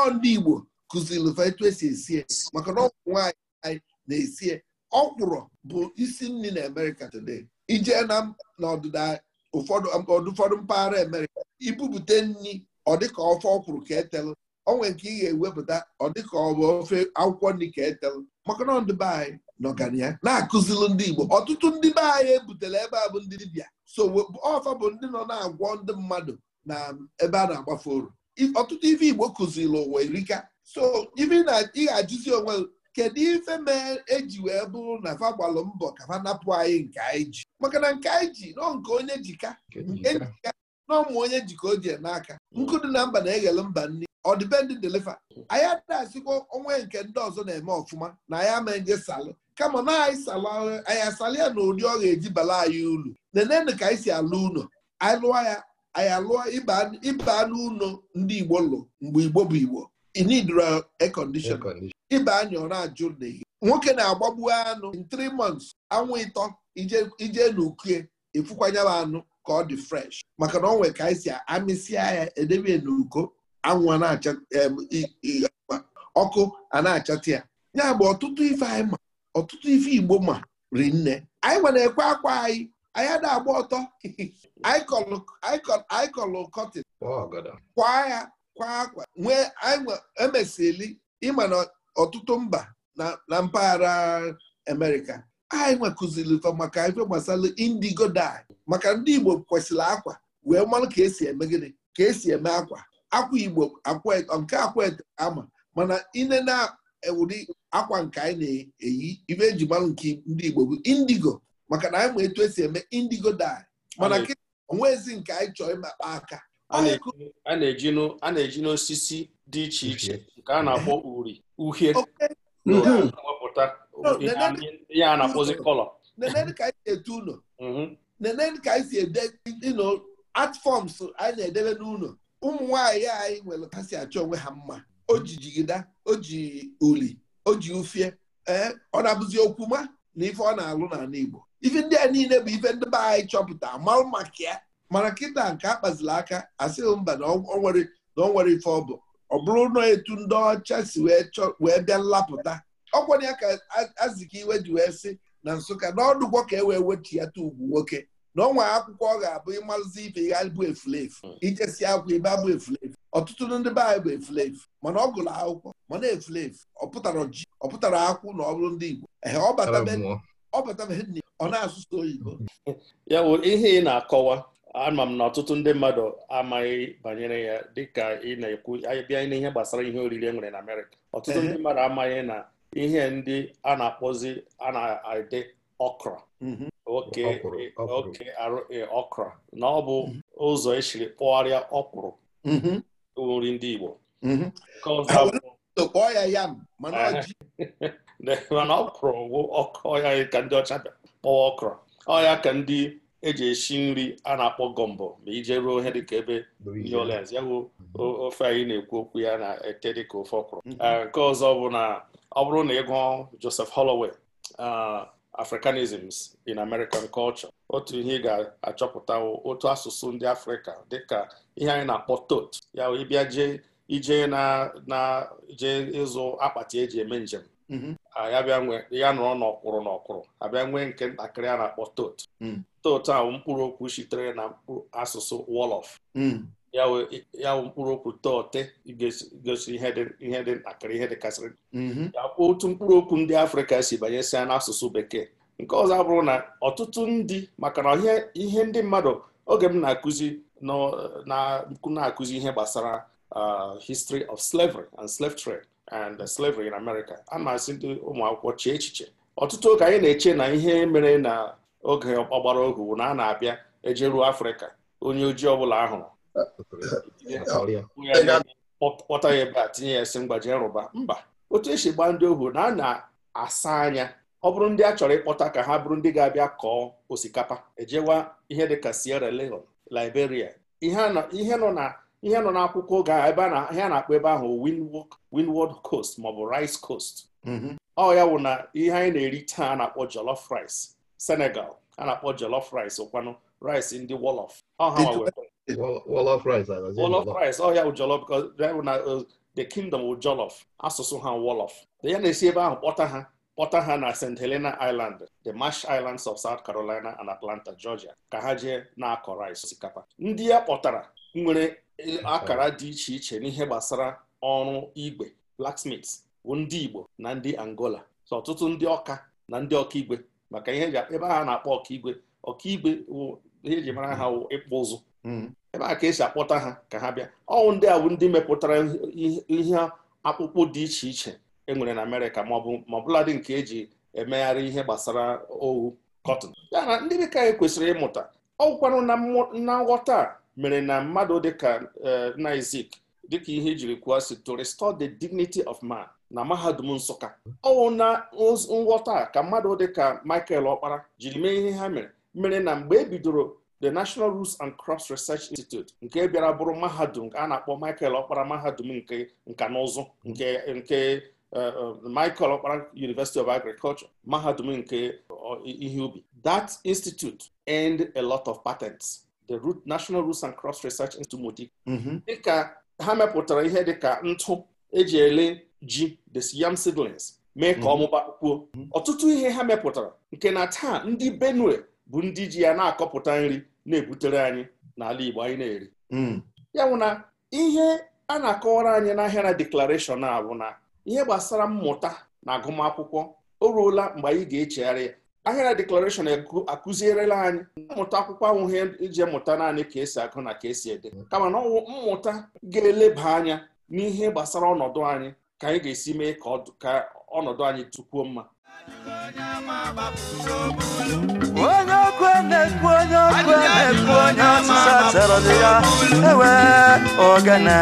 ọ Igbo kụziri ụfa etu esi esi e, maka na ọgwụ nwaanyị anyị na-esi e. ọkwụrụ bụ isi nri na Amerịka today ije na n'ọdịda ụfọdụ mpaghara Amerịka ibupute nri ọ dịka ofe ọkwụrụ ka etelụ o nwere nke ị ga-ewepụta ọ dịka ọ bụ ofe akwụkwọ nri ka etelụ maka na ọdịbe anyị n'ọganiya na-akụzilụ ndị Igbo ọtụtụ ndị be anyị ebutere ebe a bụ ndị dibịa so ọfa bụ ndị nọ na-agwọ ndị mmadụ na ebe a na-agbafe oru ọtụtụ ife Igbo kụziri ụwa erika so ife na ị ga-ajụzi onwe kedu ife mee eji wee bụrụ na fa gbalụ mbọ ka fa napụ anyị nke anyị ji maka na nke anyị ji nọ nke onye jika nke jika N'ọmụ onye jika o ji n'aka nkụ dị na mba na-eghele mba nri ọdịbendị deliver anyị adịghị asịkwa onwe nke ndị ọzọ na-eme ọfụma na anyị ama nje salụ kama na anyị asalị ya na ụdị ọ eji bala anyị ulu nenenu ka anyị si alụ ụlọ anyị lụọ ya anyị alụọ ịba n'ụlọ ndị Igbo lụ mgbe Igbo bụ Igbo inidro air condition ịba anyị ọ na-ajụ n'ehihie nwoke na-agbagbu anụ in three months anwụ ịtọ ije n'ukie efukwanyela anụ ka ọ dị fresh maka na ọ nwere ka anyị si amịsịa ya edebe n'uko anwụ na-acha ọkụ a na-achata ya ya bụ ọtụtụ ife anyị ma ọtụtụ ife igbo ma rinne nne anyị nwere ekwe akwa anyị anyị ada agba ọtọ anyị kọlụ kọtin kwaa ya kwaa akwa nwee emesili ịma na ọtụtụ mba na mpaghara Amerịka anyị nwekụziri maka ife gbasara indigo dye maka ndị Igbo kwesịrị akwa wee mmanụ ka esi eme gịnị ka esi eme akwa akwa igbo nke akwete ama mana na ụdị akwa nke anyị na-eyi ibe eji nke ndị igbo bụ indigo maka na anyị ma etu esi eme indigo dye mana onwezi nke anyị chọrọ ịmakpa aka a na-eji n'osisi dị iche iche nke a na-akpọ uri uhie wepụta ihe a na-akpọzi kọlọ nenene ka anyị si ete ụlọ mhm. nenene ka anyị si ede art forms anyị na-edebe n'ụlọ ụmụ nwaanyị anyị nwere kasị achọ onwe ha mma o ji jigida o ji uli o ji ufie ee ọ na-abụzi okwu ma na ife ọ na-alụ n'ala Igbo ife ndị a niile bụ ife ndị be anyị chọpụta marụ maka ya mara kịta nke a kpaziri aka asịghị mba na ọ nwere na ọ nwere ife ọ bụ ọ bụrụ na etu ndị ọcha si wee bịa nlapụta ọkwanye ya ka aziki iwe ji wee sị na Nsụka na ọdụgwọ ka e wee wechi ya ta ugwu nwoke na ọnwa akwụkwọ ọ ga-abụ ịmalụzi ibe ya bụ efulefu ijesi hmm. akwụkwọ ibe abụ efulefu ọtụtụ ndị be anyị bụ efulefu mana ọ gụrụ akwụkwọ mana efulefu ọ pụtara ji ọ pụtara akwụ na ọ bụrụ ndị Igbo ọ ọ na-asụsụ oyibo ya bụ ihe ị na-akọwa ama m na ọtụtụ ndị mmadụ amaghị banyere ya dịka ị na-ekwu bịa n'ihe gbasara ihe oriri e nwere na Amerịka ọtụtụ ndị mmadụ amaghị na ihe ndị a na-akpọzi a na okra Mm-hmm. oke eh, oke eh, okra na ọ bụ mm-hmm. ụzọ esiri kpụgharịa mm-hmm. ọkwụrụ nri ndị Igbo kpọọ ya yam mana ọkpụrụ eh, bụ ọya ka ndị ọcha kpọwa ọkra ọya ka ndị eji esi nri a na-akpọ gọmbọ ma ije ruo ihe dịka ebe New Orleans ya bụ ofe anyị na-ekwu okwu ya na-ete dịka ofe ọkpụrụ. nke ọzọ bụ na ọ bụrụ na ị gụọ Joseph Holloway ah, Africanisms in American culture otu ihe ị ga-achọpụta otu asụsụ ndị Afrịka dịka ihe anyị na-akpọ tot ya ịbịa jee ije na na ịzụ akpati eji eme njem mhm. ya bịa nwee ya nọrọ n'ọkwụrụ n'ọkwụrụ abịa nwee nke ntakịrị a na-akpọ tot mm. tot ahụ mkpụrụ okwu sitere na asụsụ wolof mm. ya wụ mkpụrụ okwu tọọte gosi ihe dị ntakịrị ihe dịkasịrị mm-hmm. ya kwuo otu mkpụrụ okwu ndị afrịka si banyesia n'asụsụ bekee nke ọzọ abụrụ na ọtụtụ ndị maka na ihe ndị mmadụ oge m na-akụzi na-akụzi ihe gbasara history of slavery and slave trade and slavery in America a na-asị ndị ụmụ akwụkwọ chee echiche ọtụtụ oge anyị na-eche na ihe mere na oge ọgbara ohu na a na-abịa ruo afrịka onye ojii ọbụla ahụrụ kpọta ya ebe a tinye ya esi mgbaji nrụba mba otu esi gbaa ndị ohu na a na-asa anya ọ bụrụ ndị a chọrọ ịkpọta ka ha bụrụ ndị ga-abịa kọọ osikapa ejewa ihe ka Sierra Leone Liberia ihe nọ na akwụkwọ oge ebe ihe a na-akpọ ebe ahụ Windward Coast maọbụ Rice Coast mhm. ọ ya wụ na ihe anyị na-eri taa na-akpọ jolof rice Senegal a na-akpọ jollof rice ụkwanụ rice ndị wolof ọha Wolof rice Wolof rice ọhịa oh, wụ jollof because uh, the kingdom wụ jollof asụsụ ha wolof ya na-esi ebe ahụ kpọta ha kpọta ha na St Helena Island the Marsh Islands of South Carolina and Atlanta Georgia ka ha jee na-akọ rice osikapa ndị ya kpọtara nwere eh, akara dị iche iche n'ihe gbasara ọrụ igwe blacksmiths bụ ndị Igbo na ndị Angola so ọtụtụ ndị ọka na ndị ọkaigwe maka ihe ebe a na-akpọ ọkaigwe ọkaigwe ihe eji mara ha ịkpụ ụzụ hmm. ebe a ka esi akpọta ha ka ha bịa ọnwụ ndị awụ ndị mepụtara ihe akpụkpọ dị iche iche e nwere na Amerịka maọbụ maọbụladị nke eji emegharị ihe gbasara owu kọtịn ya na ndị dịka anyị kwesịrị ịmụta ọgwụkwanụ na nghọta mere na mmadụ dịka nna eh, Izik dịka ihe jiri kwuo si to restore the dignity of man na mahadum Nsụka ọnwụ na nghọta ka mmadụ dịka Michael Ọkpara jiri mee ihe ha mere mere na mgbe e bidoro the National Roots and Crops Research Institute nke bịara bụrụ mahadum a na-akpọ Michael Okpara mahadum nke nka na ụzụ nke nke eh, eh, Michael Okpara University of Agriculture mahadum nke eh, ihe ubi that institute earned a lot of patents the root National Roots and Crops Research Institute dị mm-hmm. dịka ha mepụtara ihe dịka ntụ eji ele ji the yam seedlings mee ka mm-hmm. ọmụba kwuo mm-hmm. ọtụtụ ihe ha mepụtara nke na taa ndị Benue bụ ndị ji ya na-akọpụta nri na-ebutere anyị n'ala Igbo anyị na-eri hmm. ya bụ na ihe a na-akọwara anyị n'ahịa na deklarashọn a bụ na ihe gbasara mmụta na agụmakwụkwọ o ruola mgbe anyị ga-echegharị ya ahịa na deklarashọn akụzierela anyị mmụta akwụkwọ ahụ ihe iji mụta naanị ka esi agụ na ka esi ede kama na ọwụ mmụta ga-eleba anya n'ihe gbasara ọnọdụ anyị ka anyị ga-esi mee ka ọnọdụ anyị tukwuo mma onye ọkụ na onye ọkụ na-ekwu onye ọsịsa tọrọ dị ya ewe ogene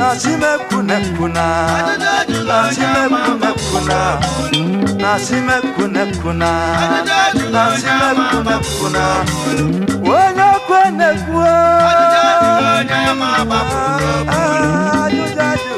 nasimekunekwuna nasimekunekwuna nasimekunekwuna na onye ọkụ na-ekwu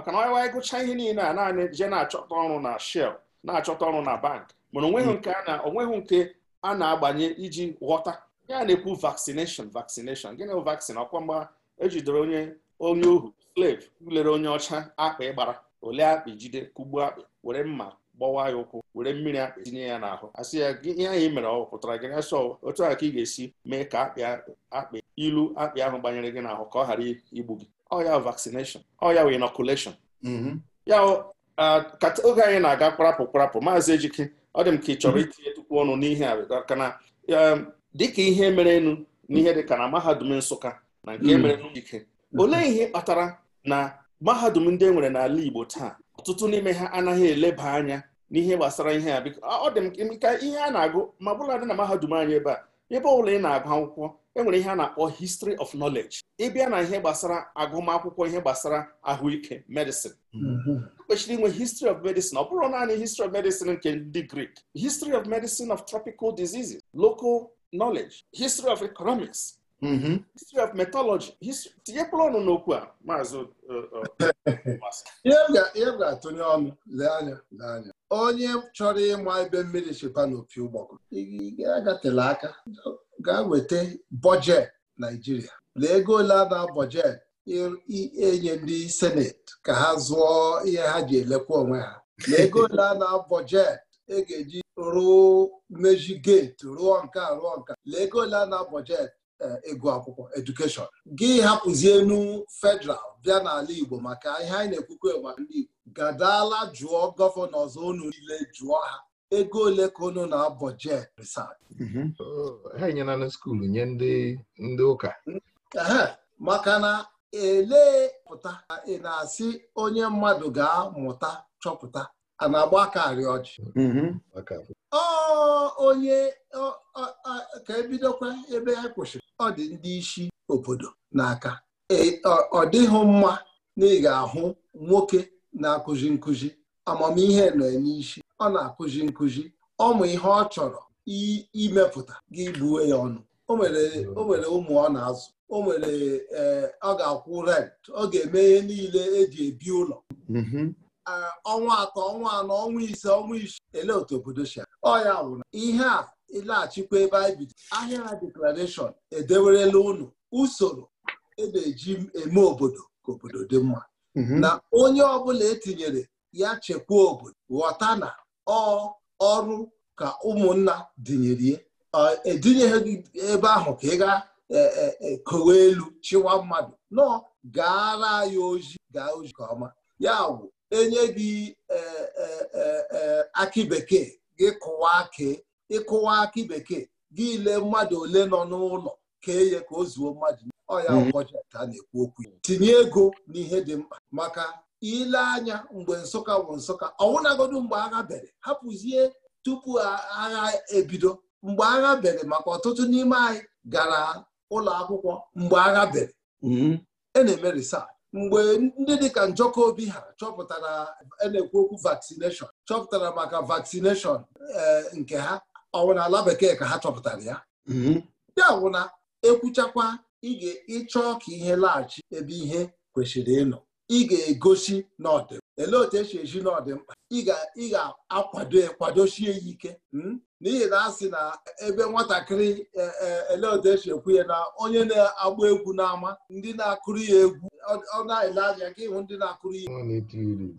maka na onye wee gụcha ihe niile a naanị je na-achọta ọrụ na shell na-achọta ọrụ na bank mana onweghị hmm. nke a onweghị nke a na-agbanye iji ghọta ya na-ekwu vaccination vaccination gịnị bụ vaccine ọkwa mgba ejidere onye onye ohu slave lere onye ọcha akpa ịgbara ole akpa jide kugbuo akpị were mma gbawa ya ụkwụ were mmiri akpị tinye ya n'ahụ asị ya ihe anyị mere ọ pụtara gị asọ otu a ka ị ga-esi mee ka akpị akpị ilu akpị ahụ gbanyere gị n'ahụ ka ọ ghara igbu gị ọ oh, ya vaccination ọ oh, ya inoculation mm-hmm. ya uh, oge anyị na-aga kwarapụ kparapụ maazị ejike ọ dị m ka ị chọrọ mm-hmm. itinye tukwu ọnụ n'ihe a kana um, dịka ihe mere enu n'ihe dịka na mahadum nsụka na nke mm-hmm. mere n'ike olee ihe kpatara na mahadum ndị e nwere n'ala igbo taa ọtụtụ n'ime ha anaghị eleba anya n'ihe gbasara ihe a biko ọ dị m ka ihe a na-agụ ma dị na mahadum anyị ebe a ebe ọ bụla ị na-agụ akwụkwọ enwere ihe a na-akpọ history of knowledge ịbịa na ihe gbasara agụmakwụkwọ ihe gbasara ahụike medicine mhm. e kwesịrị inwe history of medicine ọ bụrụ naanị history of medicine nke ndị Greek history of medicine of tropical diseases local knowledge history of economics Mm-hmm. history of methodology tinyekpụrụ ọnụ n'okwu a maazị uh, uh, ihe m ga-atụnye ọnụ lee anya lee anya onye chọrọ ịma ebe mmiri chịba n'opi ụgbọgụ agatela aka gaa weta bọjet naijiria lee ego ole a na-abọjet ndị seneti ka ha zụọ ihe ha ji elekwa onwe ha lee ego ole a na e ga-eji ruo mejigeti geeti rụọ nka rụọ nka lee ego ole a na ịgụ akwụkwọ edukeshọn gị hapụzie enu federal bịa n'ala Igbo maka ihe anyị na-ekwukwe maka ndị Igbo gadala jụọ gọvanọ ọzọ unu niile jụọ ha ego ole ka unu na-abọ jet research mhm. oh, ha enyela na nye ndị ụka maka na elee pụta ị na-asị onye mmadụ ga-amụta chọpụta a na-agba aka arị ọjị mhm. ọ onye ka ebidokwa ebe ha kwụsị ọ dị ndị isi obodo n'aka e, ọ dịghị mma na ị ga-ahụ nwoke na-akụzi nkụzi amamihe nọ n'isi ọ na-akụzi nkụzi ọmụ ihe ọ chọrọ imepụta gị buwe ya ọnụ o nwere ụmụ ọ na-azụ o nwere e, ọ ga-akwụ rent ọ ga-eme ihe niile eji ebi ụlọ mm-hmm. ọnwa atọ ọnwa anọ ọnwa ise ọnwa isi ele otu obodo si ọ ya wụrụ ihe a ịlaghachikwa ebe anyị bido ahịa deklarashọn edewerela ụnụ usoro e na-eji eme obodo ka obodo dị mma mhm. na onye ọbụla etinyere ya chekwaa obodo ghọta na ọ ọrụ ka ụmụnna dịnyere edinyeghị ebe ahụ ka ị ga kowe e, e, elu chịwa mmadụ nọ gaara ya ozi gaa ozi ka ọma ya bụ enye gị e, aki bekee gị kụwa kee ịkụwa akị bekee gị ile mmadụ ole nọ n'ụlọ kee ya ka o zuo mmadụ ọya ọkọchị mhm. a na-ekwu okwu tinye ego n'ihe dị mkpa maka ile anya mgbe nsụka bụ nsụka ọwụnagodu mgbe agha bere hapụzie tupu agha ebido mgbe agha bere maka ọtụtụ n'ime anyị gara ụlọ akwụkwọ mgbe agha bere mhm. e na-eme mgbe ndị dịka njọkọ obi ha chọpụtara e na-ekwu okwu vaccination chọpụtara maka vaccination eh, nke ha ọwụ na ala bekee ka ha chọpụtara ya ndị mm-hmm. wụ ekwuchakwa ekwuchakwa ịchọ ka ihe laghachi ebe ihe kwesịrị ịnọ ị ga-egosi n'ọdị elee otu esi eji n'ọdịmkpa ị ga-akwado ekwadosie ya ike hmm? n'ihi na a sị na ebe nwatakịrị e, e, elee otu esi ekwu ya na onye na-agba egwu n'ama ndị na-akụrụ ya egwu ọ na-ele anya ka ịhụ ndị na-akụrụ ya egwu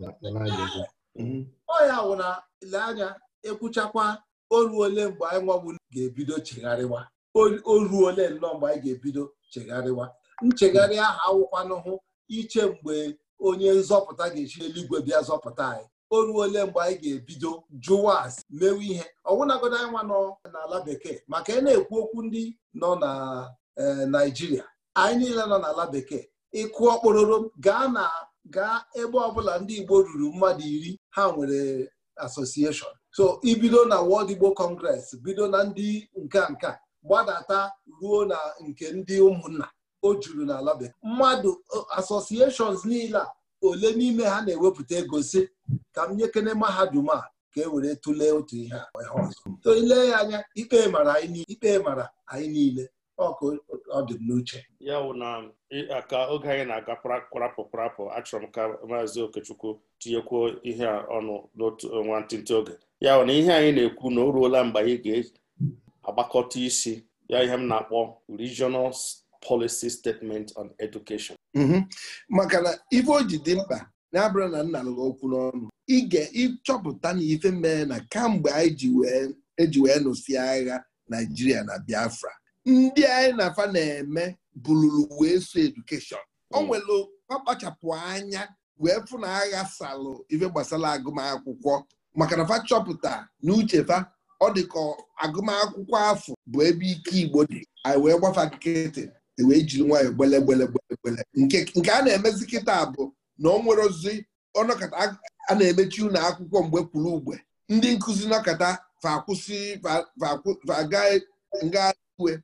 mm-hmm. ọ ya wụ na ele anya ekwuchakwa oruole mgbe anyị nwawu ga-ebido chegharịwa oru ole nnọọ mgbe anyị ga-ebido chegharịwa nchegharị ahụ awụkwanụhụ iche mgbe onye nzọpụta ga-echi eluigwe bịa zọpụta anyị oru ole mgbe anyị ga-ebido jụwa asị mewe ihe ọwụnagodo anyị nwa nọ n'ala bekee maka ị e na-ekwu okwu ndị nọ na e, Naịjirịa anyị niile nọ n'ala bekee ịkụ ọkpọrọrọ gaa na gaa ebe ọbụla ndị Igbo ruru mmadụ iri ha nwere asosieshọn so ibido na wọd Igbo Congress bido na ndị nke nka gbadata ruo na nke ndị ụmụnna o juru na alabe mmadụ associations niile a ole n'ime ha na-ewepụta ego si ka m nyekene mahadum a ka e were tụlee otu ihe ọzọ ile ya anya ikpe mara ikpe mara anyị niile ọkụ ọ dị n'uche ya wụ na ka oge anyị na-aga kwarapụ kwarapụ achọrọ m ka maazị Okechukwu tinyekwuo ihe a ọnụ n'otu nwantịntị oge ya na ihe anyị na-ekwu na o ruola mgbe anyị ga-agbakọta isi ya ihe m na-akpọ regional policy statement on education. Mhm. maka na ife o ji dị mkpa na-abụrụ na nna lụrụ okwu n'ọnụ ige ịchọpụta na ife mee na kamgbe anyị eji wee e nụsị agha Naijiria na Biafra ndị anyị na afa na-eme bụluru wee so edukeshọn o mm. nwere kpachapụ anya wee fụ na agha salụ ife gbasara agụmakwụkwọ maka na fa chọpụta na uchefa ọ dị ka agụmakwụkwọ afọ bụ ebe ike Igbo dị anyị wee gbafa nkịtị e wee jiri nwayọ gbele gbele gbele nke a na-emezi kịta bụ na ọ nwere ozi ọnọkata a na-emechi ụlọ akwụkwọ mgbe kwuru ugbe ndị nkụzi nọkata fakwụsị nga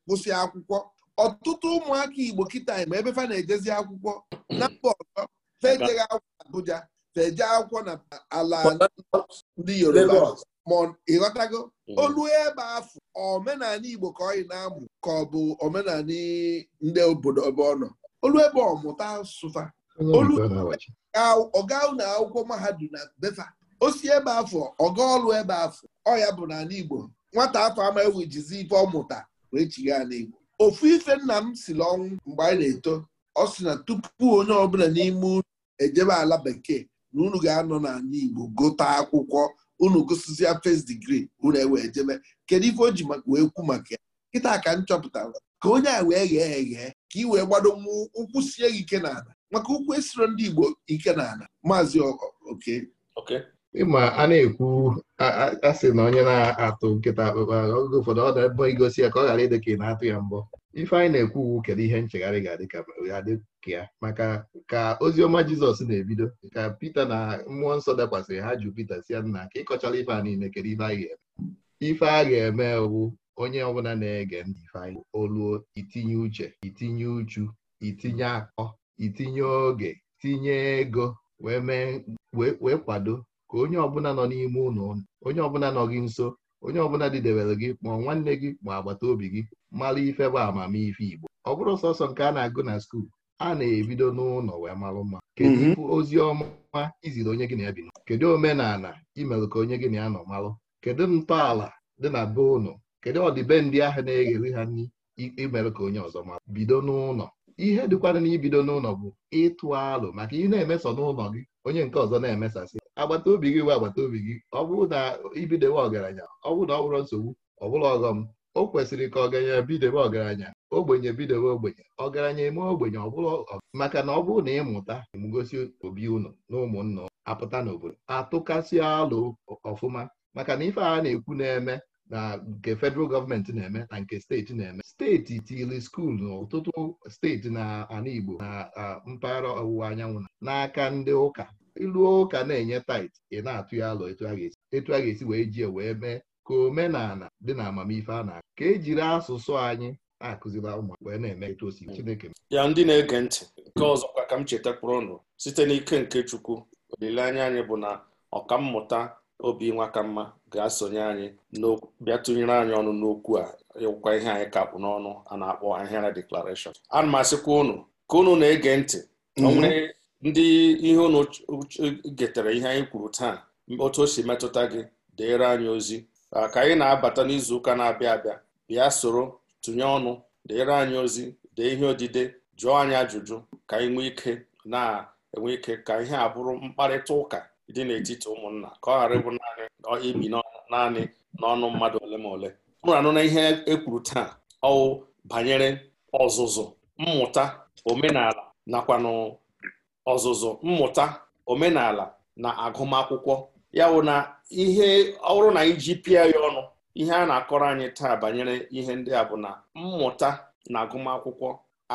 kwụsị akwụkwọ ọtụtụ ụmụaka Igbo kịta ma ebe fa na-ejezi akwụkwọ na mba ọzọ fa ejeghị akwụkwọ abụja. teje akwụkwọ na ala ndị Yoruba ma ịghọtago mm. olu ebe afọ omenala Igbo ka ọyị na-amụ ka ọ bụ omenala ndị obodo ebe ọ nọ olu ebe ọmụta sụfa olu na akwụkwọ mahadum na befa osi ebe afọ ọga ọlụ ebe afọ ọya bụ n'ala Igbo nwata afọ ama ewejizi ife ọmụta wee ala n'Igbo ofu ife nna m siri ọnwụ mgbe anyị na-eto ọ sị na tupu onye ọbụla n'ime unu ejebe ala bekee na unu ga-anọ n'ala Igbo gote akwụkwọ unu gụsịzịa fes digri unu ewee jebe kedu ife o ji wee kwu maka ya nkịta ka m chọpụtara ka onye a wee ghee eghee ka ị wee gbado nwa ụkwụ sie gị ike n'ala maka ụkwụ esiro ndị Igbo ike n'ala maazị oke ịma a na-ekwu asị na onye na-atụ nkịta akpụkpa ụfọdụ ọ dị ebo igosi ya ka ọ ghara ịdị ka ị na-atụ ya mbọ ife anyị na-ekwu uwu kedu ihe nchegharị ga-adị ka ya maka ka oziọma jizọs na-ebido ka pita na mmụọ nsọ dakwasịrị ha jụ pita si ya nna ka ịkọchara ife a niile kedu ife a ga-eme ife a ga-eme wu onye ọbụla na-ege ndị ife anyị oluo itinye uche itinye uchu itinye akọ itinye oge tinye ego wee wee kwado ka onye ọbụla nọ n'ime ụlọ onye ọbụla nọ gị nso onye ọbụla didewere gị ma nwanne gị ma agbata obi gị mara ife bụ amamife Igbo ọ bụrụ sọsọ nke a na-agụ na skuul a na-ebido n'ụlọ wee marụ mma kedu mhm. ozi ọma iziri onye gị na ya bi kedu omenala imerụ ka onye gị na ya nọ marụ kedu ntọala dị na be ụlọ kedu ọdịbendị ahụ na-eghere ha nri imerụ ka onye ọzọ mara bido n'ụlọ ihe dịkwana na ibido n'ụlọ bụ ịtụ alụ maka ị na emeso n'ụlọ gị onye nke ọzọ na-emesasị agbata obi gị bụ agbata obi gị ọ bụrụ na ibidewe ọgaranya ọ bụrụ na ọ bụrụ nsogbu ọ bụla ọghọm o kwesịrị ka ọgaranya bidewe ọgaranya ogbenye bidewe ogbenye ọgaranya eme ogbenye ọbụla maka na ọ bụrụ na ịmụta mgosi obi ụnụ na ụmụnna apụta n'obodo atụkasị alụ ọfụma maka na ife a na-ekwu na-eme na nke federal gọọmenti na-eme na nke steeti na-eme steeti tili skuulu na ọtụtụ steeti na ala Igbo na mpaghara ọwụwa anyanwụ n'aka ndị ụka ịlụọ ụka na-enye tait ị na-atụ ya alụ etu a ga-esi wee jie wee mee ka omenala dị na amamife a na-akụ ka ejiri asụsụ anyị na-akụziri wee na-eme etu o Chineke ya ndị na-ege ntị nke ọzọkwa ka m cheta kpụrụnụ site n'ike nke Chukwu olileanya anyị bụ na ọkammụta obi mma ga-asonye anyị bịa tụnyere anyị ọnụ n'okwu a ịwụkwa ihe anyị ka kpụ n'ọnụ a na-akpọ ahịara deklarashọn ana m asịkwa ụnụ ka ụnụ na-ege ntị ndị ihe ụnụ getara ihe anyị kwuru taa otu o si metụta gị deere anyị ozi ka anyị na-abata n'izu ụka na-abịa abịa bịa soro tụnye ọnụ deere anyị ozi dee ihe odide jụọ anyị ajụjụ ka anyị nwee ike na-enwe ike ka ihe a bụrụ mkparịta ụka dị n'etiti ụmụnna ka ọ ghara ịbụ naanị ibi naanị n'ọnụ mmadụ ole ma ole mụrụ anụ na ihe ekwuru taa ọwụ banyere ọzụzụ mmụta omenala nakwanụ ọzụzụ mmụta omenala na agụmakwụkwọ ya wụ na ihe ọrụ na iji ji pịa ya ọnụ ihe a na-akọrọ anyị taa banyere ihe ndị a bụ na mmụta na agụmakwụkwọ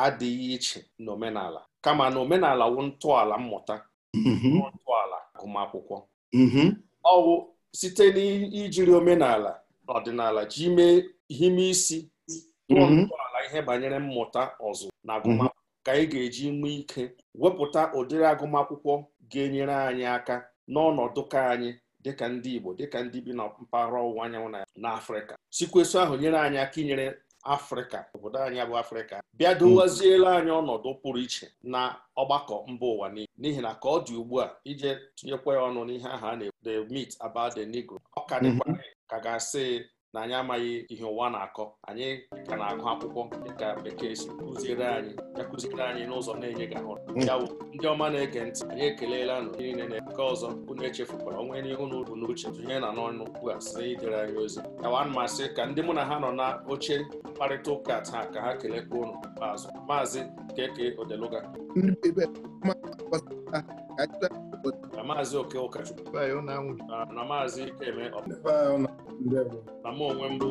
adịghị iche n'omenala kama na omenala wụ ntọala mmụta mm-hmm. ntọala agụmakwụkwọ mm-hmm. ọwụ site n'ijiri omenala ọdịnala ji mee ihe isi mm-hmm. ntọala ihe banyere mmụta ọzụ na agụmakwụkwọ ka anyị ga-eji nwe ike wepụta ụdịrị agụmakwụkwọ ga-enyere anyị aka n'ọnọdụ ka anyị dịka ndị Igbo dịka ndị bi na mpaghara ọwụwa anyanwụ na Afrịka sikweso ahụ nyere anyị aka inyere Afrịka obodo anyị bụ Afrịka bịa dowaziela anyị ọnọdụ pụrụ iche na ọgbakọ mba ụwa niile n'ihi na ka ọ dị ugbu a ije tụnyekwa ya ọnụ n'ihe aha a na-ekwu the myth about the Negro ọ ka dịkwa mhm. ka ga-asị na anyị amaghị ihe ụwa na-akọ anyị ka na-agụ akwụkwọ dịka bekee si kụziere anyị ya kụziere anyị n'ụzọ na enye gị hmm. ya bụ ndị ọma na-ege ntị anyị ekelela nụ niile na nke ọzọ unu echefukwara onwe n'ihe unu bụ n'uche tụnye na n'ọnụ ugbu a site idere anyị ozi yawa mmasị ka ndị mụ na ha nọ na oche mkparịta ụka taa ka ha kelekwa ụnụ ikpeazụ maazị keke odeluga na maazị oke ụkọchukwu na maazị ikeme na m onwe mbụ